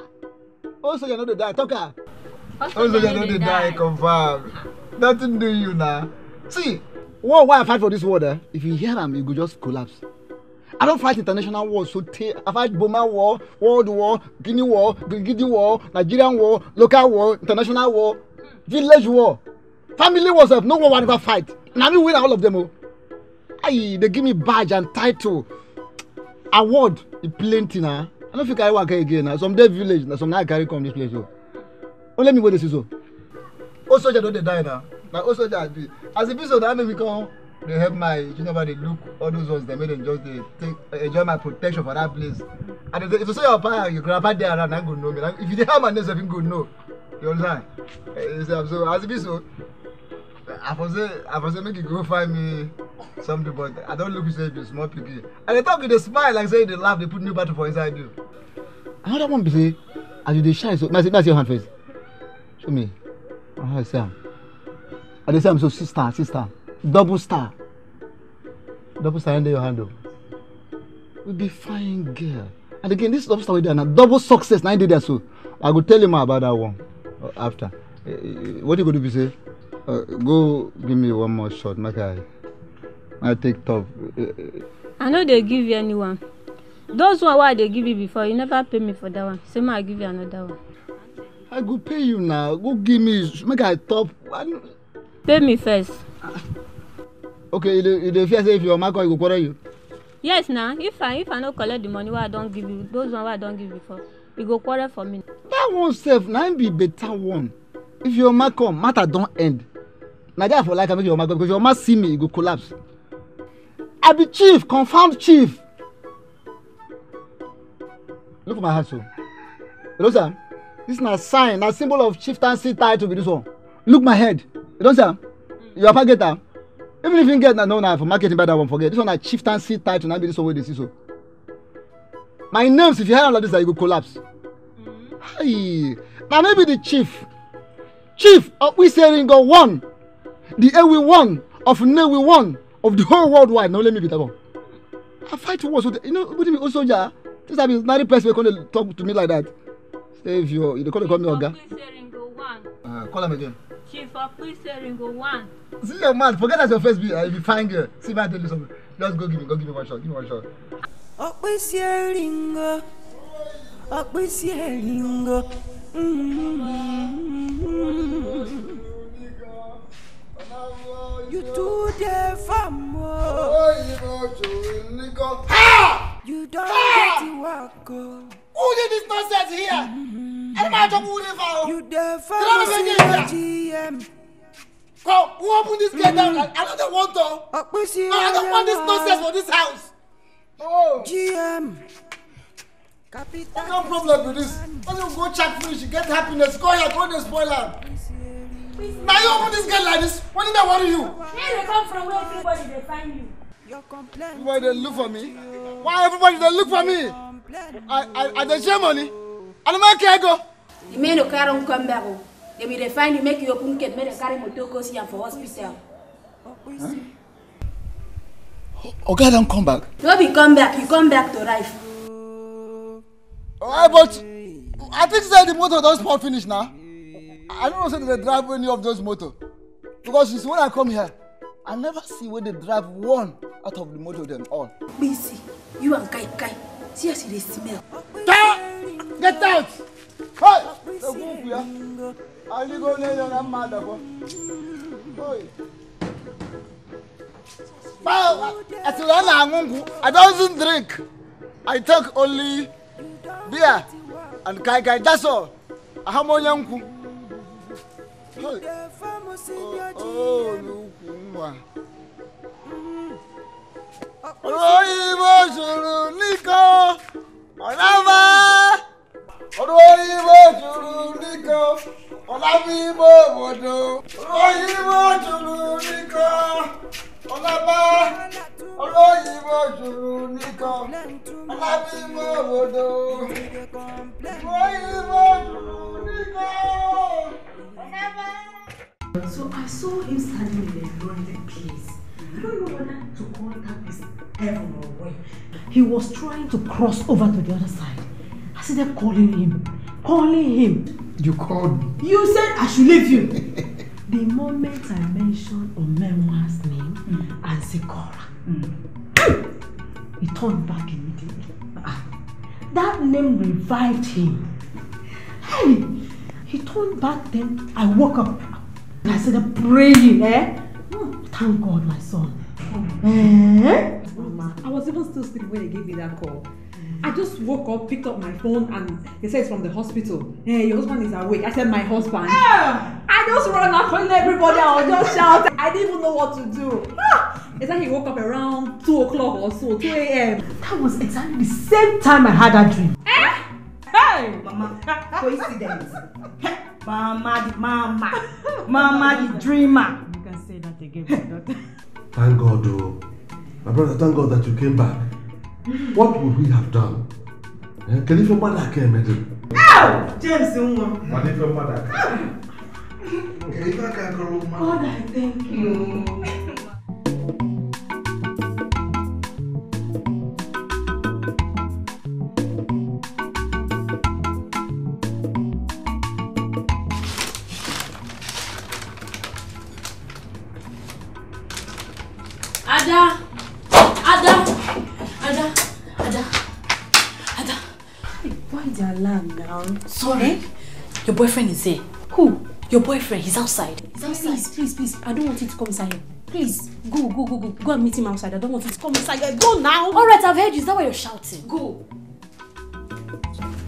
old soldier no dey die talk am old soldier no dey die confam nothing do you now. see war why i fight for this world eh if you hear them, you could just collapse I don't fight international wars so tey I fight Boma war, World war, Guinea war, Gigidi war, Nigerian war, local war, international war, village war, family wars. sef no one wan ever fight na me win all of them Oh, Ayi dey give me badge and title, award e plenty na. I don't think I work again na some dey village na some na I carry come this place Oh, oh let me wey this is. Oh, soldier don't dey die now, na old soldier As a e be so na I make me come They help my junior dey look all those ones they made dem just dey take enjoy my protection for that place and if you say your papa your grandpa there around na go know me if you dey help my name sef him go know you understand eh, you so as e be so i for say i for say make you go find me something but i don't look you say you small pikin And they talk with a smile like say they laugh They put new battle for inside you. another one be say as you dey shine so may see may i see your hand first show me how ah, i see am i dey see am so sister sister double star double star under your handle oh. we be fine girl and again this double star wey dey na double success na him dey there so i go tell you more about that one uh, after uh, what you go do be say uh, go give me one more shot make eh, i i take top. i no dey give you any one those one wey i dey give you before you never pay me for that one say make i give you another one. i go pay you now go give me make i top. I... pay me first. Ah okay you dey you dey fear say if your mama come you go quarrel you. yes na if i if i no collect the money wey i don give you those one wey i don give before you go quarrel for me. that one sef na im be better one if your mama come matter don end na there i for like am make your mama come because your mama see me you go collapse i be chief confirmed chief look for my hat so hello sir this na sign na symbol of chieftaincy title be this one look my head you don see am your papa get am even if you get na no na for marketing buy that one forget this one na chieftaincy title na be this one wey dey see so my names if you hire all like this na you go collapse mm. Mm-hmm. na maybe the chief chief of iseringo one the ewe one of newe one of the whole world wide na only me be that one i fight war so you know wetin be old soldier this time is marry person wey come dey talk to me like that save your you dey call dey call me oga. Uh, call am again. She for pre-searing go one. See your man, forget that your face be uh, if you find girl. See if I tell you something. Just go give me, go give me one shot, give me one shot. Ọ̀pẹ sí ẹ̀rín go, ọ̀pẹ sí ẹ̀rín go. You do dey farm o. You Ha! get the work o. Oh. Who did this nonsense here? Mm-hmm. Ẹni máa jọ kúrú nífa o. You dey farm sí OGM. Come, who opened this gate down? Mm-hmm. I don't dey want to. Ọ̀pẹ sí ọ̀yọ́ I don't want this nonsense for this house. Oh. GM. Capital. What kind of problem with this? Why don't you go check finish, get happiness, go here, go dey spoil am. Now you open this gate like this. What did I worry you? Where they come from? Where everybody they find you? Why they look for me? Why everybody they look for me? I I I dey share money. I don't make care go. The men no carry come back. Oh. They will find you make you open gate. Make they carry motor go see for hospital. Huh? Oga don't come back. No be come back. You come back to life. Alright, but I think that the motor don spoil finish now. I don't know say they drive any of those motor because you see when I come here I never see where they drive one out of the motor them all. Bisi, you and Kai Kai, see as they smell. Get, get out! Hey! The wolf here. I live on there and mad Hey! I don't drink. I take only beer and Kai Kai, that's all. I have my uncle olùkùnwà. olóyìnbó mm-hmm. sùúrù nìkan ọ̀nàmá. olóyìnbó sùúrù nìkan ọ̀nàmíbó bòdò. olóyìnbó sùúrù nìkan ọ̀nàmá. olóyìnbó sùúrù nìkan ọ̀nàmíbó bòdò. olóyìnbó sùúrù nìkan. So I saw him standing in a lonely place. I don't know whether to call that place heaven or where. He was trying to cross over to the other side. I see them calling him, calling him. You called me. You said I should leave you. the moment I mentioned Omenwa's name mm. and Sikora, mm. he turned back immediately. Ah, that name revived him. Hey, he turned back then. I woke up. I started praying. Eh? Thank God, my son. Eh? Mama, I was even still sleeping when they gave me that call. I just woke up, picked up my phone, and they said it's from the hospital. Hey, your husband is awake. I said, My husband. Yeah. I just ran out calling everybody. I was just shouting. I didn't even know what to do. Ah! It's like he woke up around 2 o'clock or so, 2 a.m. That was exactly the same time I had that dream. Eh? Hey! Mama, coincidence. Mama the mama. Mama the dreamer. You can say that again, my daughter. Thank God, oh. My brother, thank God that you came back. What would we have done? Eh? Can if your mother came, Madam? Ow! James, Nwa. What if your mother came? Okay, if I can call Mother, I thank you. around. Sorry. Eh? Your boyfriend is here. Who? Your boyfriend. He's outside. He's outside. Please, please, please. I don't want you to come inside Please, go, go, go, go. Go and meet him outside. I don't want you to come inside Go now. All right, I've heard you. Is that why you're shouting? Go.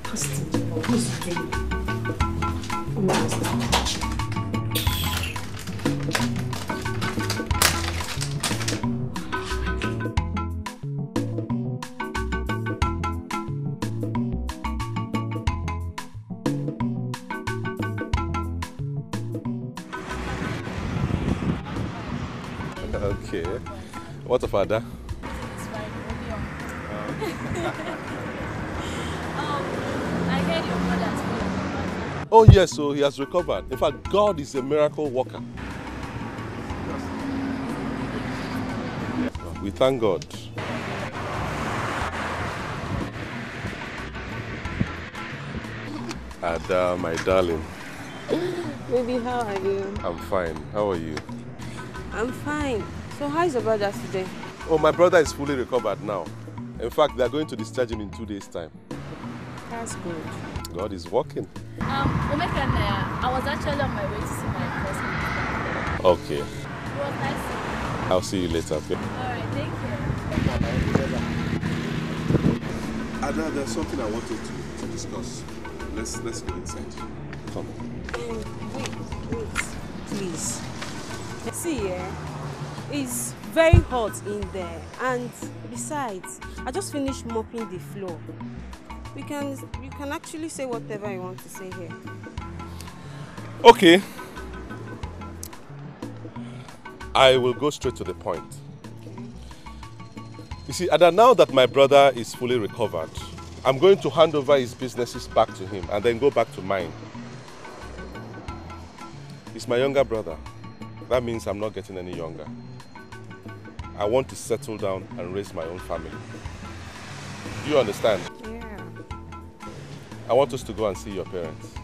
Christine, you? What's a father? It's fine, um, I heard your brother's Oh yes, so he has recovered. In fact, God is a miracle worker. We thank God. Ada, my darling. Baby, how are you? I'm fine. How are you? I'm fine. So how is your brother today? Oh, my brother is fully recovered now. In fact, they are going to discharge him in two days' time. That's good. God is working. Um, uh, I was actually on my way to see my cousin. Okay. Well, nice. I'll see you later. Okay? All right, thank you. Ada, there's something I wanted to, to discuss. Let's let's go inside. Come. Mm, wait, wait, please. See, yeah. It's very hot in there and besides, I just finished mopping the floor. We can, you can actually say whatever you want to say here. Okay. I will go straight to the point. You see, and now that my brother is fully recovered, I'm going to hand over his businesses back to him and then go back to mine. He's my younger brother. That means I'm not getting any younger. I want to settle down and raise my own family. Do you understand? Yeah. I want us to go and see your parents.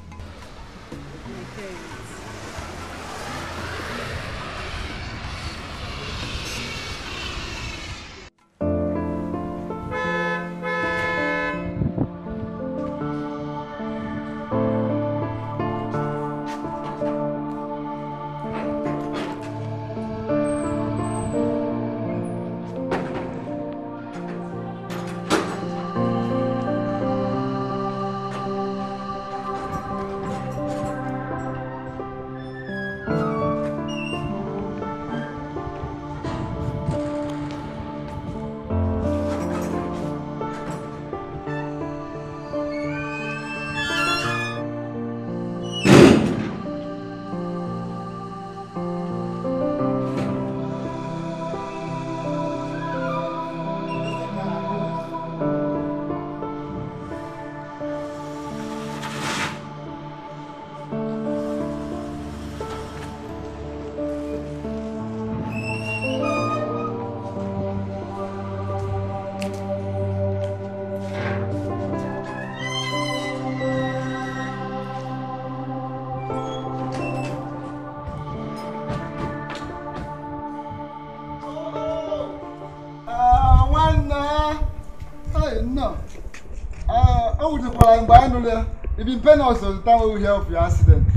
It's been painful mpe the time. We nwe uhie of your accident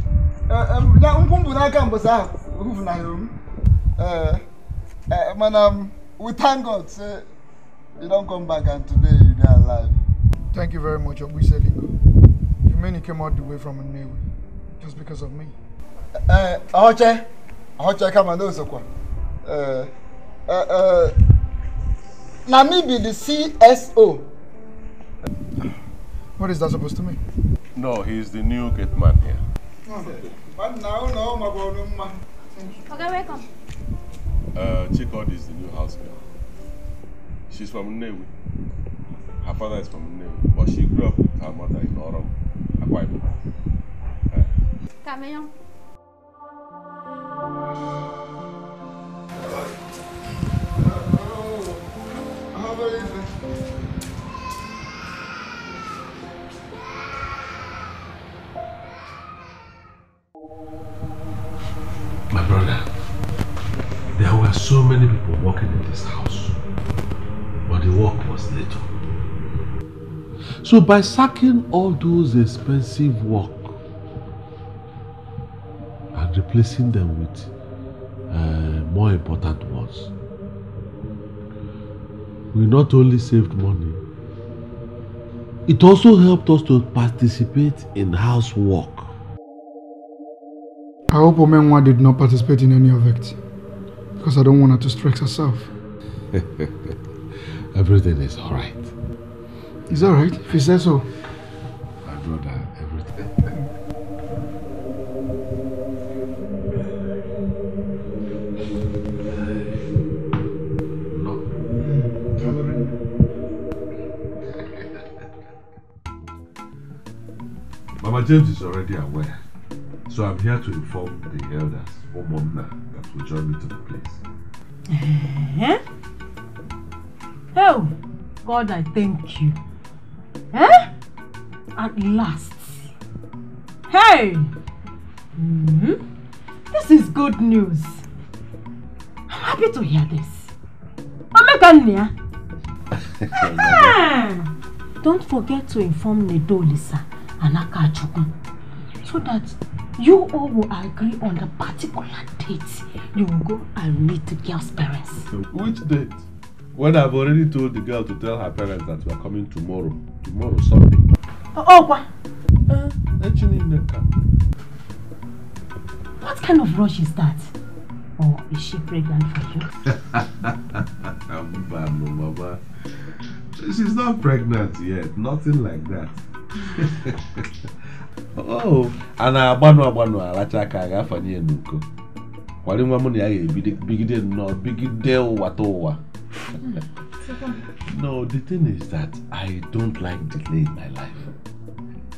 nkwụmpụ n'aka mgbasa ahụ ofufunahịrị m mana we thank God say you don't come back and today you dey alive. Thank you very much, Ogbuse Lingo. You mean you came all the way from a Nnewi just because of me? Eh, Ahoche. Ahoche do no sokwa. Eh, eh, eh. Na me be the CSO What is that supposed to mean? No, he's the new gate man here. But now, no, my boy, Okay, welcome. Uh, Chikod is the new house girl. She's from Nnewi. Her father is from Nnewi, but she grew up with her mother in Orom, Akwa Ibom. Uh. How are you? so many people working in this house, but the work was little. So by sacking all those expensive work and replacing them with uh, more important ones, we not only saved money, it also helped us to participate in housework. I hope Omenwa did not participate in any of it. Because I don't want her to stress herself. everything is all right. It's all right if you say so. My brother, everything. Mama James is already aware, so I'm here to inform the elders, Omona will join me to the place. Eh? Oh, God, I thank you. Eh? At last. Hey! Mm -hmm. This is good news. I'm happy to hear this. Omekania! Ah! Don't forget to inform Lisa, and Akachukwu so that you all will agree on the particular date you will go and meet the girl's parents. Which date? When I've already told the girl to tell her parents that we are coming tomorrow. Tomorrow, Sunday. Oh, oh what? Uh, eh, what kind of rush is that? Or is she pregnant for you? Mama, Mama. She's not pregnant yet. Nothing like that. Oh. a na-agbanụ agbanụ alacha aka a ga-afanye ya n'uko kwari nwa m na ya ga-ebigide nnọọ bigide ụwata ụwa no the thing is that i don't like delay in my life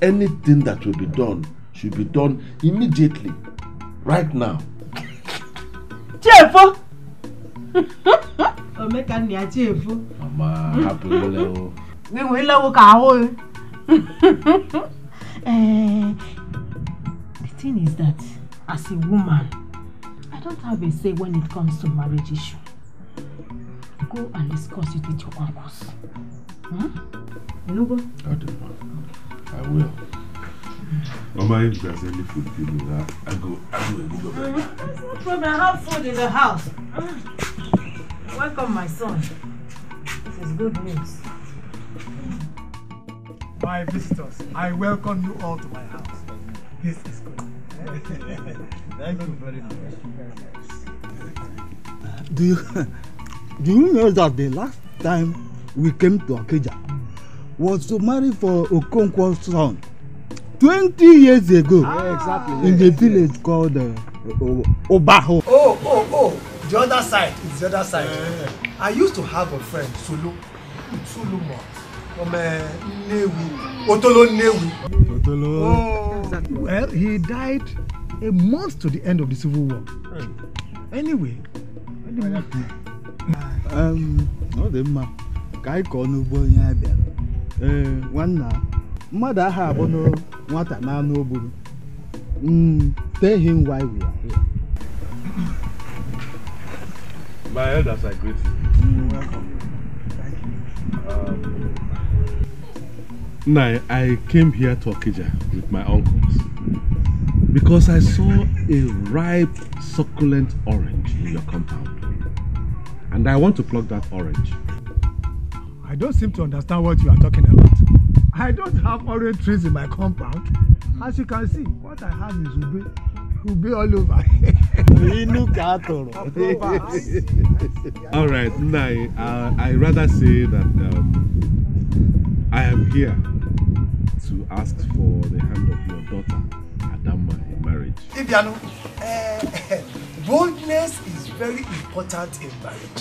anything that will be done should be done immediately right now chiefo omeka nna ya chiefo mama hapụ nwelewo gị nwelewo ka ahụghị Eh, the thing is that as a woman, I don't have a say when it comes to marriage issue. Go and discuss it with your uncles. Hmm? Nubo? I don't I will. Mama, if there's any food for me, I go, I go and go back. Mm, there's no problem. I have food in the house. Mm. Welcome, my son. This is good news my visitors, I welcome you all to my house. This is good. Thank you very much. Do you, do you know that the last time we came to Akeja was to marry for Okonkwo's son 20 years ago ah, exactly, in yes, the village called uh, Obaho? Oh, oh, oh, the other side, it's the other side. Yeah. I used to have a friend, Sulu, Sulu Sulumo otolo oh. well he died a month to the end of the civil war anyway. ọ dị mma ka anyị kọọ n'ugbo onye a bịara ee nwanna mmadụ no abụnụ nwata n'anụ o gburu hmm, tell him why we are here. My elders, are greet hmm. welcome. Thank you. Um, No, I came here to Okija with my uncles because I saw a ripe, succulent orange in your compound. And I want to pluck that orange. I don't seem to understand what you are talking about. I don't have orange trees in my compound. As you can see, what I have is ube. Ube all over. all right, Nai, uh, I rather say that um, I am here asks for the hand of your daughter, Adama, in marriage? Ibiano, uh, eh, boldness is very important in marriage.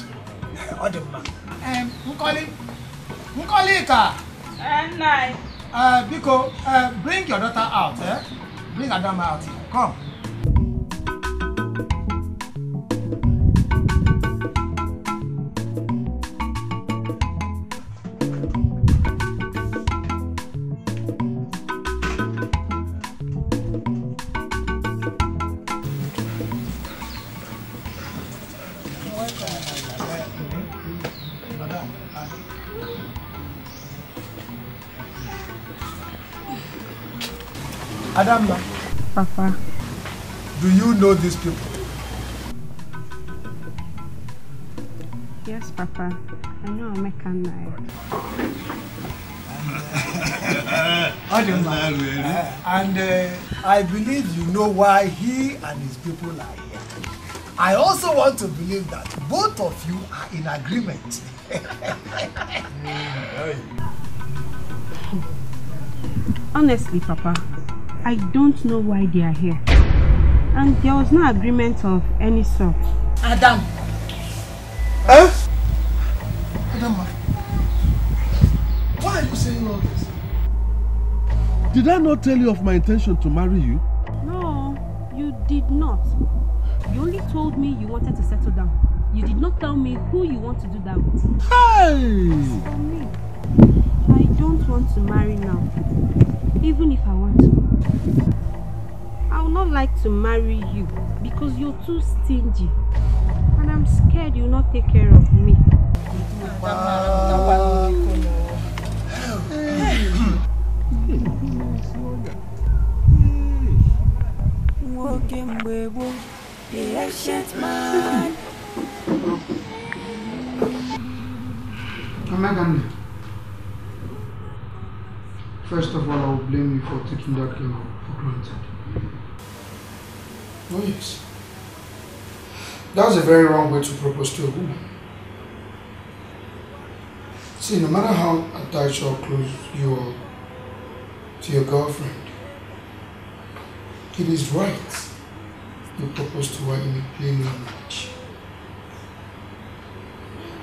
Odemma. Um, eh, Nkoli. Nkoli ka. Uh, Nai. Uh, Biko, uh, bring your daughter out. Eh? Bring Adama out. Come. Madam, Papa. Do you know these people? Yes, Papa. I know a and I. and uh, I believe you know why he and his people are here. I also want to believe that both of you are in agreement. Honestly, Papa, I don't know why they are here. And there was no agreement of any sort. Adam! Huh? Adam, why are you saying all this? Did I not tell you of my intention to marry you? No, you did not. You only told me you wanted to settle down. You did not tell me who you want to do that with. Hey! for me, I don't want to marry now, even if I want to. I would not like to marry you because you're too stingy. And I'm scared you'll not take care of me. Walking the ancient man. Come again. First of all, I will blame you for taking that girl for granted. Oh yes. That's a very wrong way to propose to a woman. See, no matter how attached or close you are to your girlfriend, it is right you propose to her in a plain language.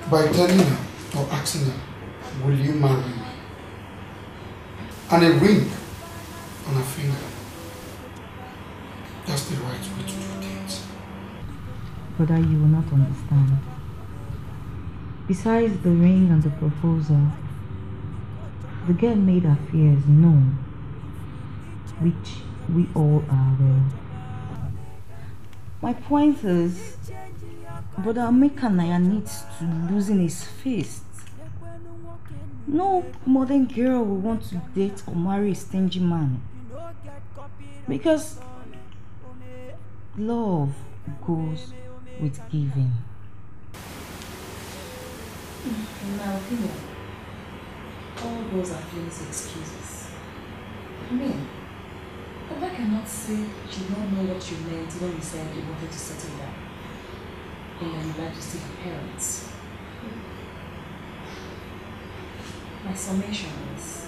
By telling her or asking her, will you marry me? and a ring on her finger. That's the right way to do things. Brother, you will not understand. Besides the ring and the proposal, the girl made her fears known, which we all are aware My point is, Brother Ameka Naya needs to loosen his face no modern girl will want to date or marry a stingy man. Because love goes with giving. In my opinion, all those are flimsy excuses. I mean, Oba cannot say she did not know what you meant when you said you wanted to settle down. And then you to parents. My summation is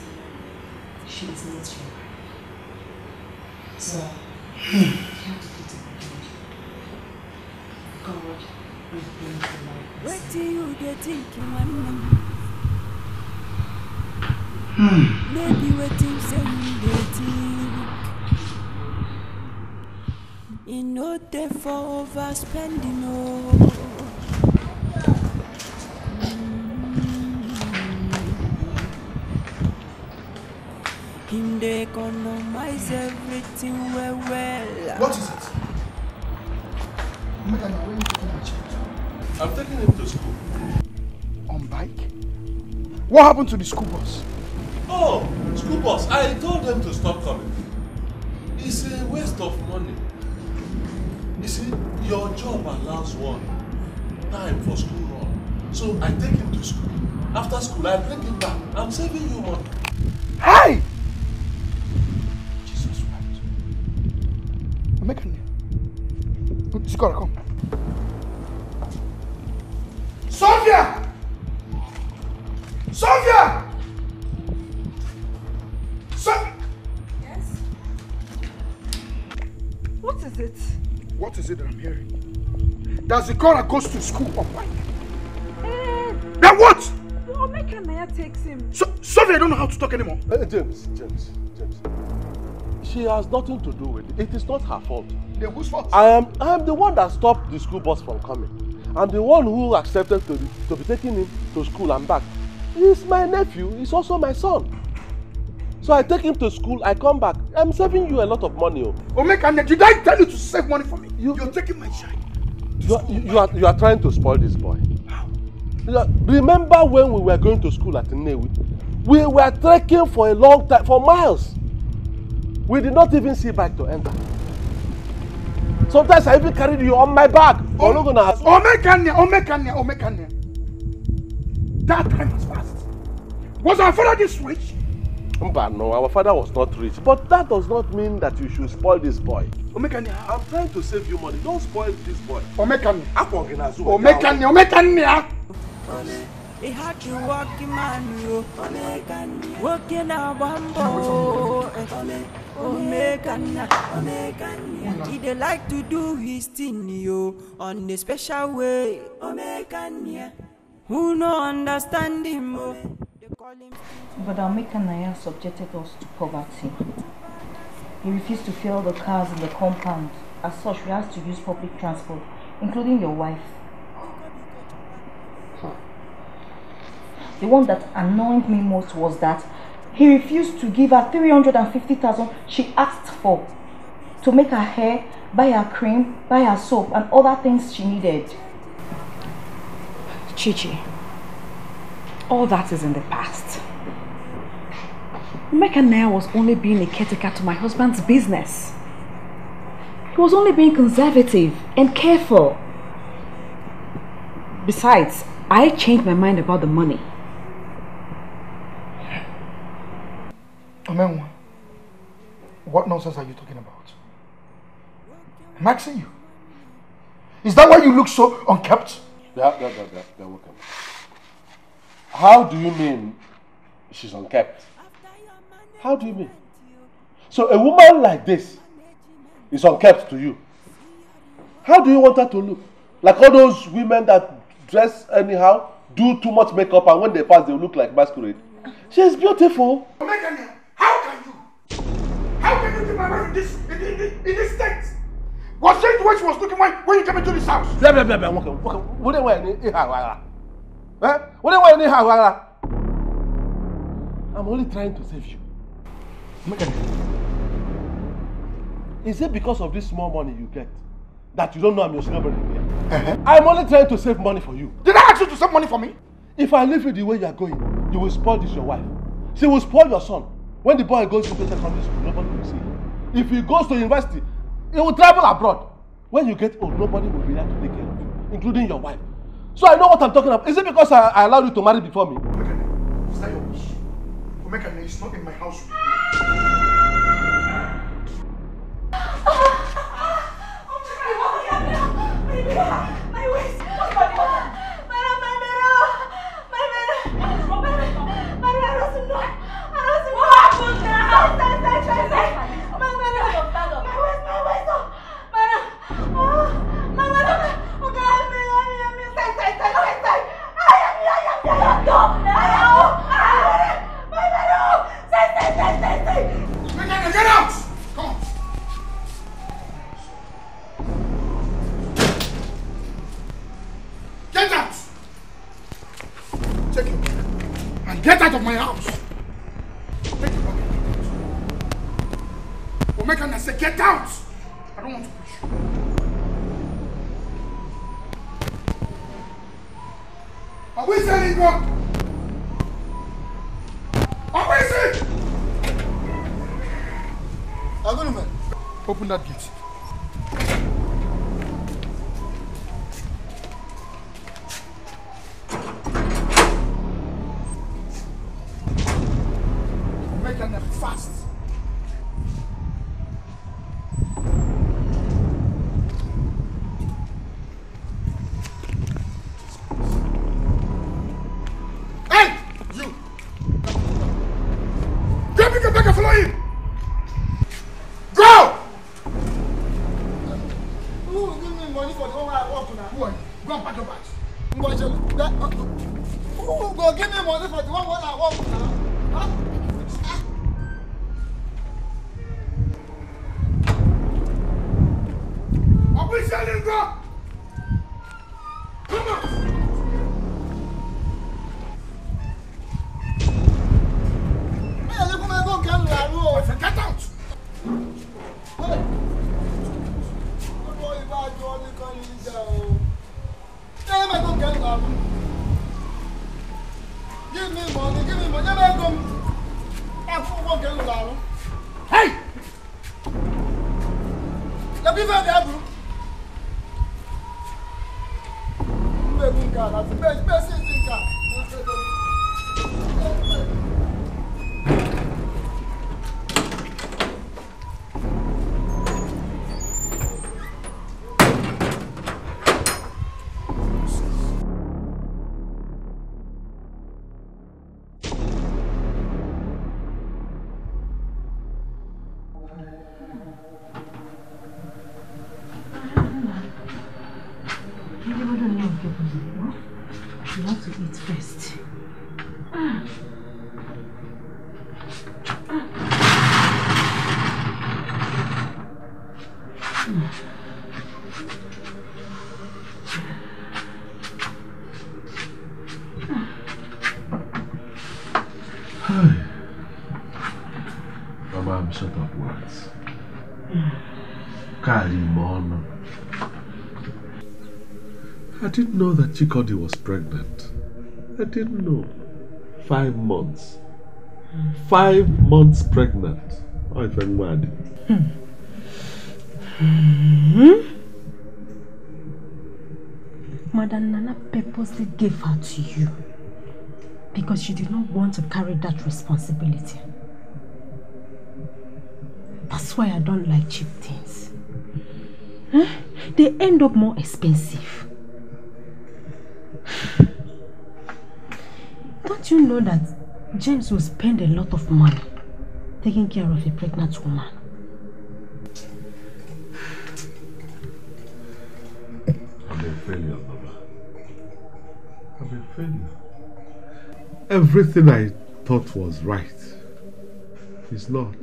she is not your wife. So I you have to put it in God. God will bring to life. Hmm. What do you get thinking when Hmm. Maybe waiting you they think. You know they for overspending oh. Him they economize everything well well. What is it? Madam, where you taking my child? I'm taking him to school. On bike? What happened to the school bus? Oh, school bus. I told them to stop coming. It's a waste of money. You see, your job allows one time for school run. So I take him to school. After school, I bring him back. I'm saving you money. Hey! Mekane. Sikora, come. Sofia! Sofia! So yes? What is it? What is it that I'm hearing? That Zikora goes to school on Monday. Uh, then what? Omeka Naya takes him. So Sofia, I don't know how to talk anymore. Uh, James, James, James. She has nothing to do with it. It is not her fault. Then whose fault? I am I am the one that stopped the school bus from coming. I'm the one who accepted to, be, to be taking him to school and back. He's my nephew. He's also my son. So I take him to school, I come back. I'm saving you a lot of money. Oh. Omeka, did I tell you to save money for me? You, You're taking my child. You are, you, are, you are trying to spoil this boy. How? Remember when we were going to school at Newi? We were trekking for a long time, for miles. We did not even see bike to enter. Sometimes I even carried you on my back. Oh, Ologona. Omekania, Omekania, Omekania. That time was fast. Was our father this rich? But no, our father was not rich. But that does not mean that you should spoil this boy. Omekania. I'm trying to save you money. Don't spoil this boy. Omekania. Omekania, Omekania. Omekania. Ị ha ji walking man o, nwoke na-agba mbọ o. Omekanya, Omekanya. He dey like to do his thing, yo, on a special way. Omekanya. Who no understand him, oh. But Omekanya subjected us to poverty. He refused to fill the cars in the compound. As such, we had to use public transport, including your wife. The one that annoyed me most was that he refused to give her 350,000 she asked for to make her hair, buy her cream, buy her soap and other things she needed. Chichi, all that is in the past. Mecca Nair was only being a caretaker to my husband's business. He was only being conservative and careful. Besides, I changed my mind about the money. Omenwa, what nonsense are you talking about? I'm asking you. Is that why you look so unkept? Yeah, yeah, yeah, yeah, yeah, welcome. How do you mean she's unkept? How do you mean? So a woman like this is unkept to you. How do you want her to look? Like all those women that dress anyhow, do too much makeup, and when they pass, they look like masquerade. She's beautiful. Omegania, are you looking my wife in this, in, in, in this state? Was she the way she was looking when, when you came into this house? Blah, blah, blah, blah. Okay, okay. What do you want in Hawara? Eh? What do you want in Hawara? I'm only trying to save you. Make a Is it because of this small money you get that you don't know I'm your celebrity here? Uh-huh. I'm only trying to save money for you. Did I ask you to save money for me? If I leave you the way you are going, you will spoil this your wife. She will spoil your son when the boy goes to secondary school nobody will see him if he goes to university he will travel abroad when you get old nobody will be there to take care of you including your wife so i know what i'm talking about is it because i, I allowed you to marry before me. omekane is that your wish omekane is not in my house. Oh, oh, oh, oh, oh, Chikodi was pregnant. I didn't know. Five months. Five months pregnant. Oh, I'm mad. Mother hmm. Madam Nana purposely gave her to you because she did not want to carry that responsibility. That's why I don't like cheap things. Huh? They end up more expensive. Don't you know that James will spend a lot of money taking care of a pregnant woman? I'm a failure, Baba. I'm a failure. Everything I thought was right is not.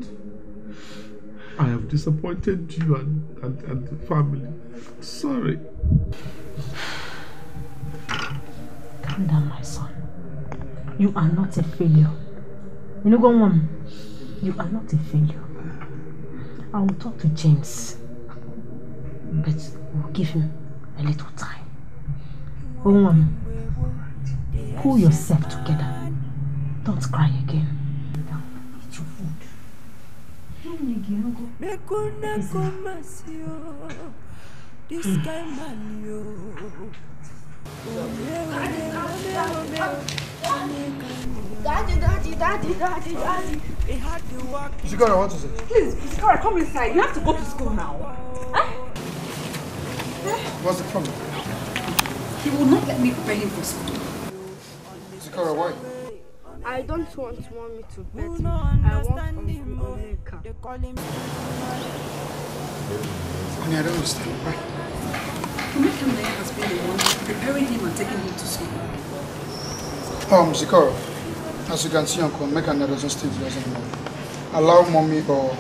I have disappointed you and, and, and the family. Sorry. calm down, my son. You are not a failure. You know, go on. You are not a failure. I will talk to James, but we'll give him a little time. Go on. Pull yourself together. Don't cry again. Now, eat your food. Daddy, daddy, daddy, daddy, daddy. They had to Please, Shikora, come inside. You have to go to school now. Huh? What's the problem? He will not let me prepare him for school. Shikora, why? I don't want mommy to bet. I want America. Honey, I don't understand. Why? Omekamde has been the one preparing him and taking him to school. Um, Zikoro, as you can see, Uncle Mekamde doesn't stay with us anymore. Allow mommy or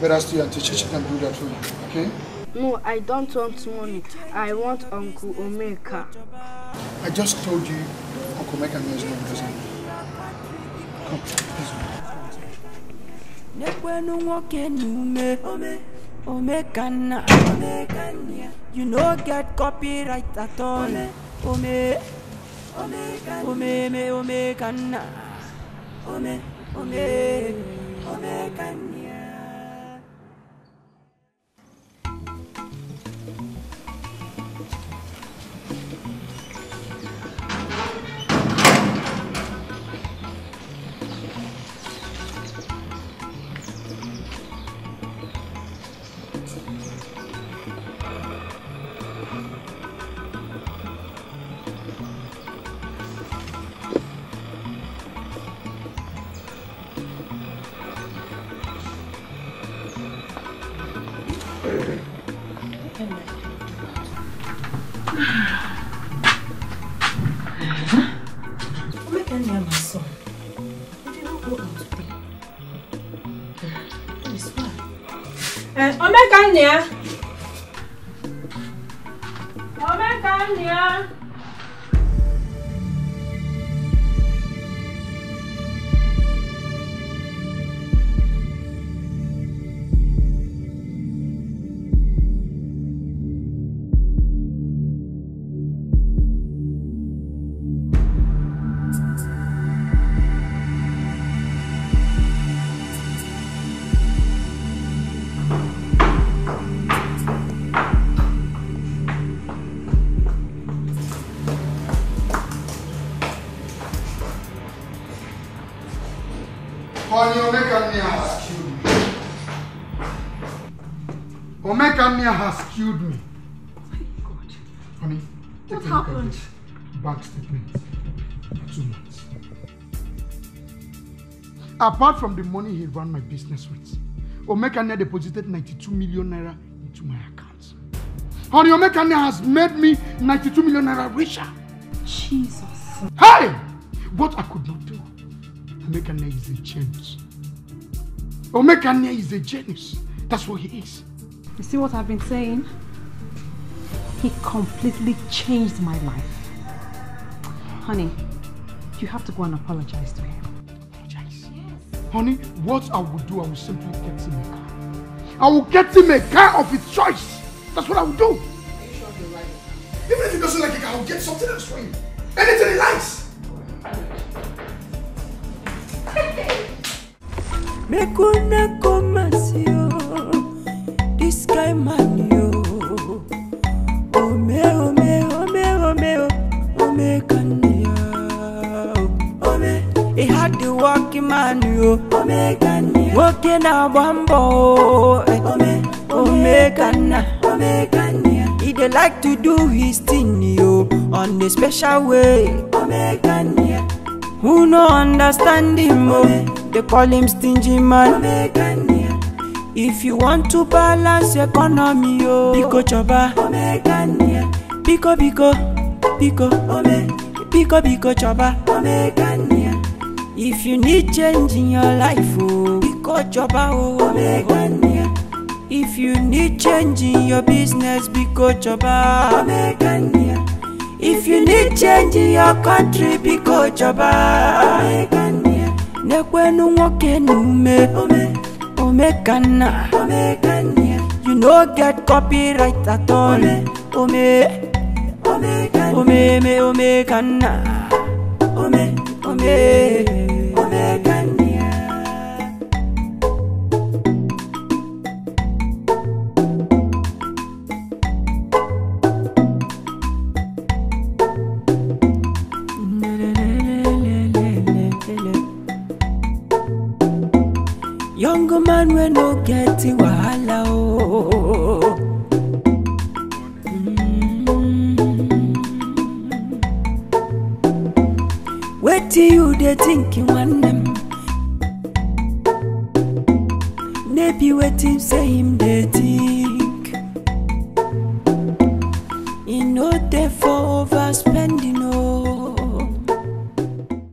better still and teacher can do that for you, okay? No, I don't want money. I want Uncle Omeka. I just told you Uncle Omeka is not present. Come, please. Omegana, Omekana. You no get copyright at all. Ome, Ome, Omekana. Ome, Omekana. Ome, Ome, Omekana. 年。apart from the money he ran my business with, Omekane deposited 92 million naira into my account. Honey, Omekane has made me 92 million naira richer. Jesus. Hey! What I could not do. Omekane is a genius. Omekane is a genius. That's what he is. You see what I've been saying? He completely changed my life. Honey, you have to go and apologize to him. Honey, what I will do, I will simply get him a car. I will get him a car of his choice. That's what I will do. Are you sure you're right? Even if he doesn't like it, I will get something else for him. Anything he likes. Make una comasio. Omeganu nwoke na-agba mbọ Omeganu he like to do his thing yo on a special way who no understand him o they call him stingy man if you want to balance economy yo biko chọba biko biko biko biko biko chọba if you need change in your life o oh, biko jọba o omegania if you need change in your business biko jọba omegania if you need change in your country biko jọba omegania nekwenu nwoke me ume omekanna omegania you no get copyright at all ome omegania omeme omekanna ome. ome, ome, ome, ome, ome, ome, ome, ome, ome gẹ́tì wàhálà o. Mm. wetin you dey think nwanne m no be wetin say him dey think.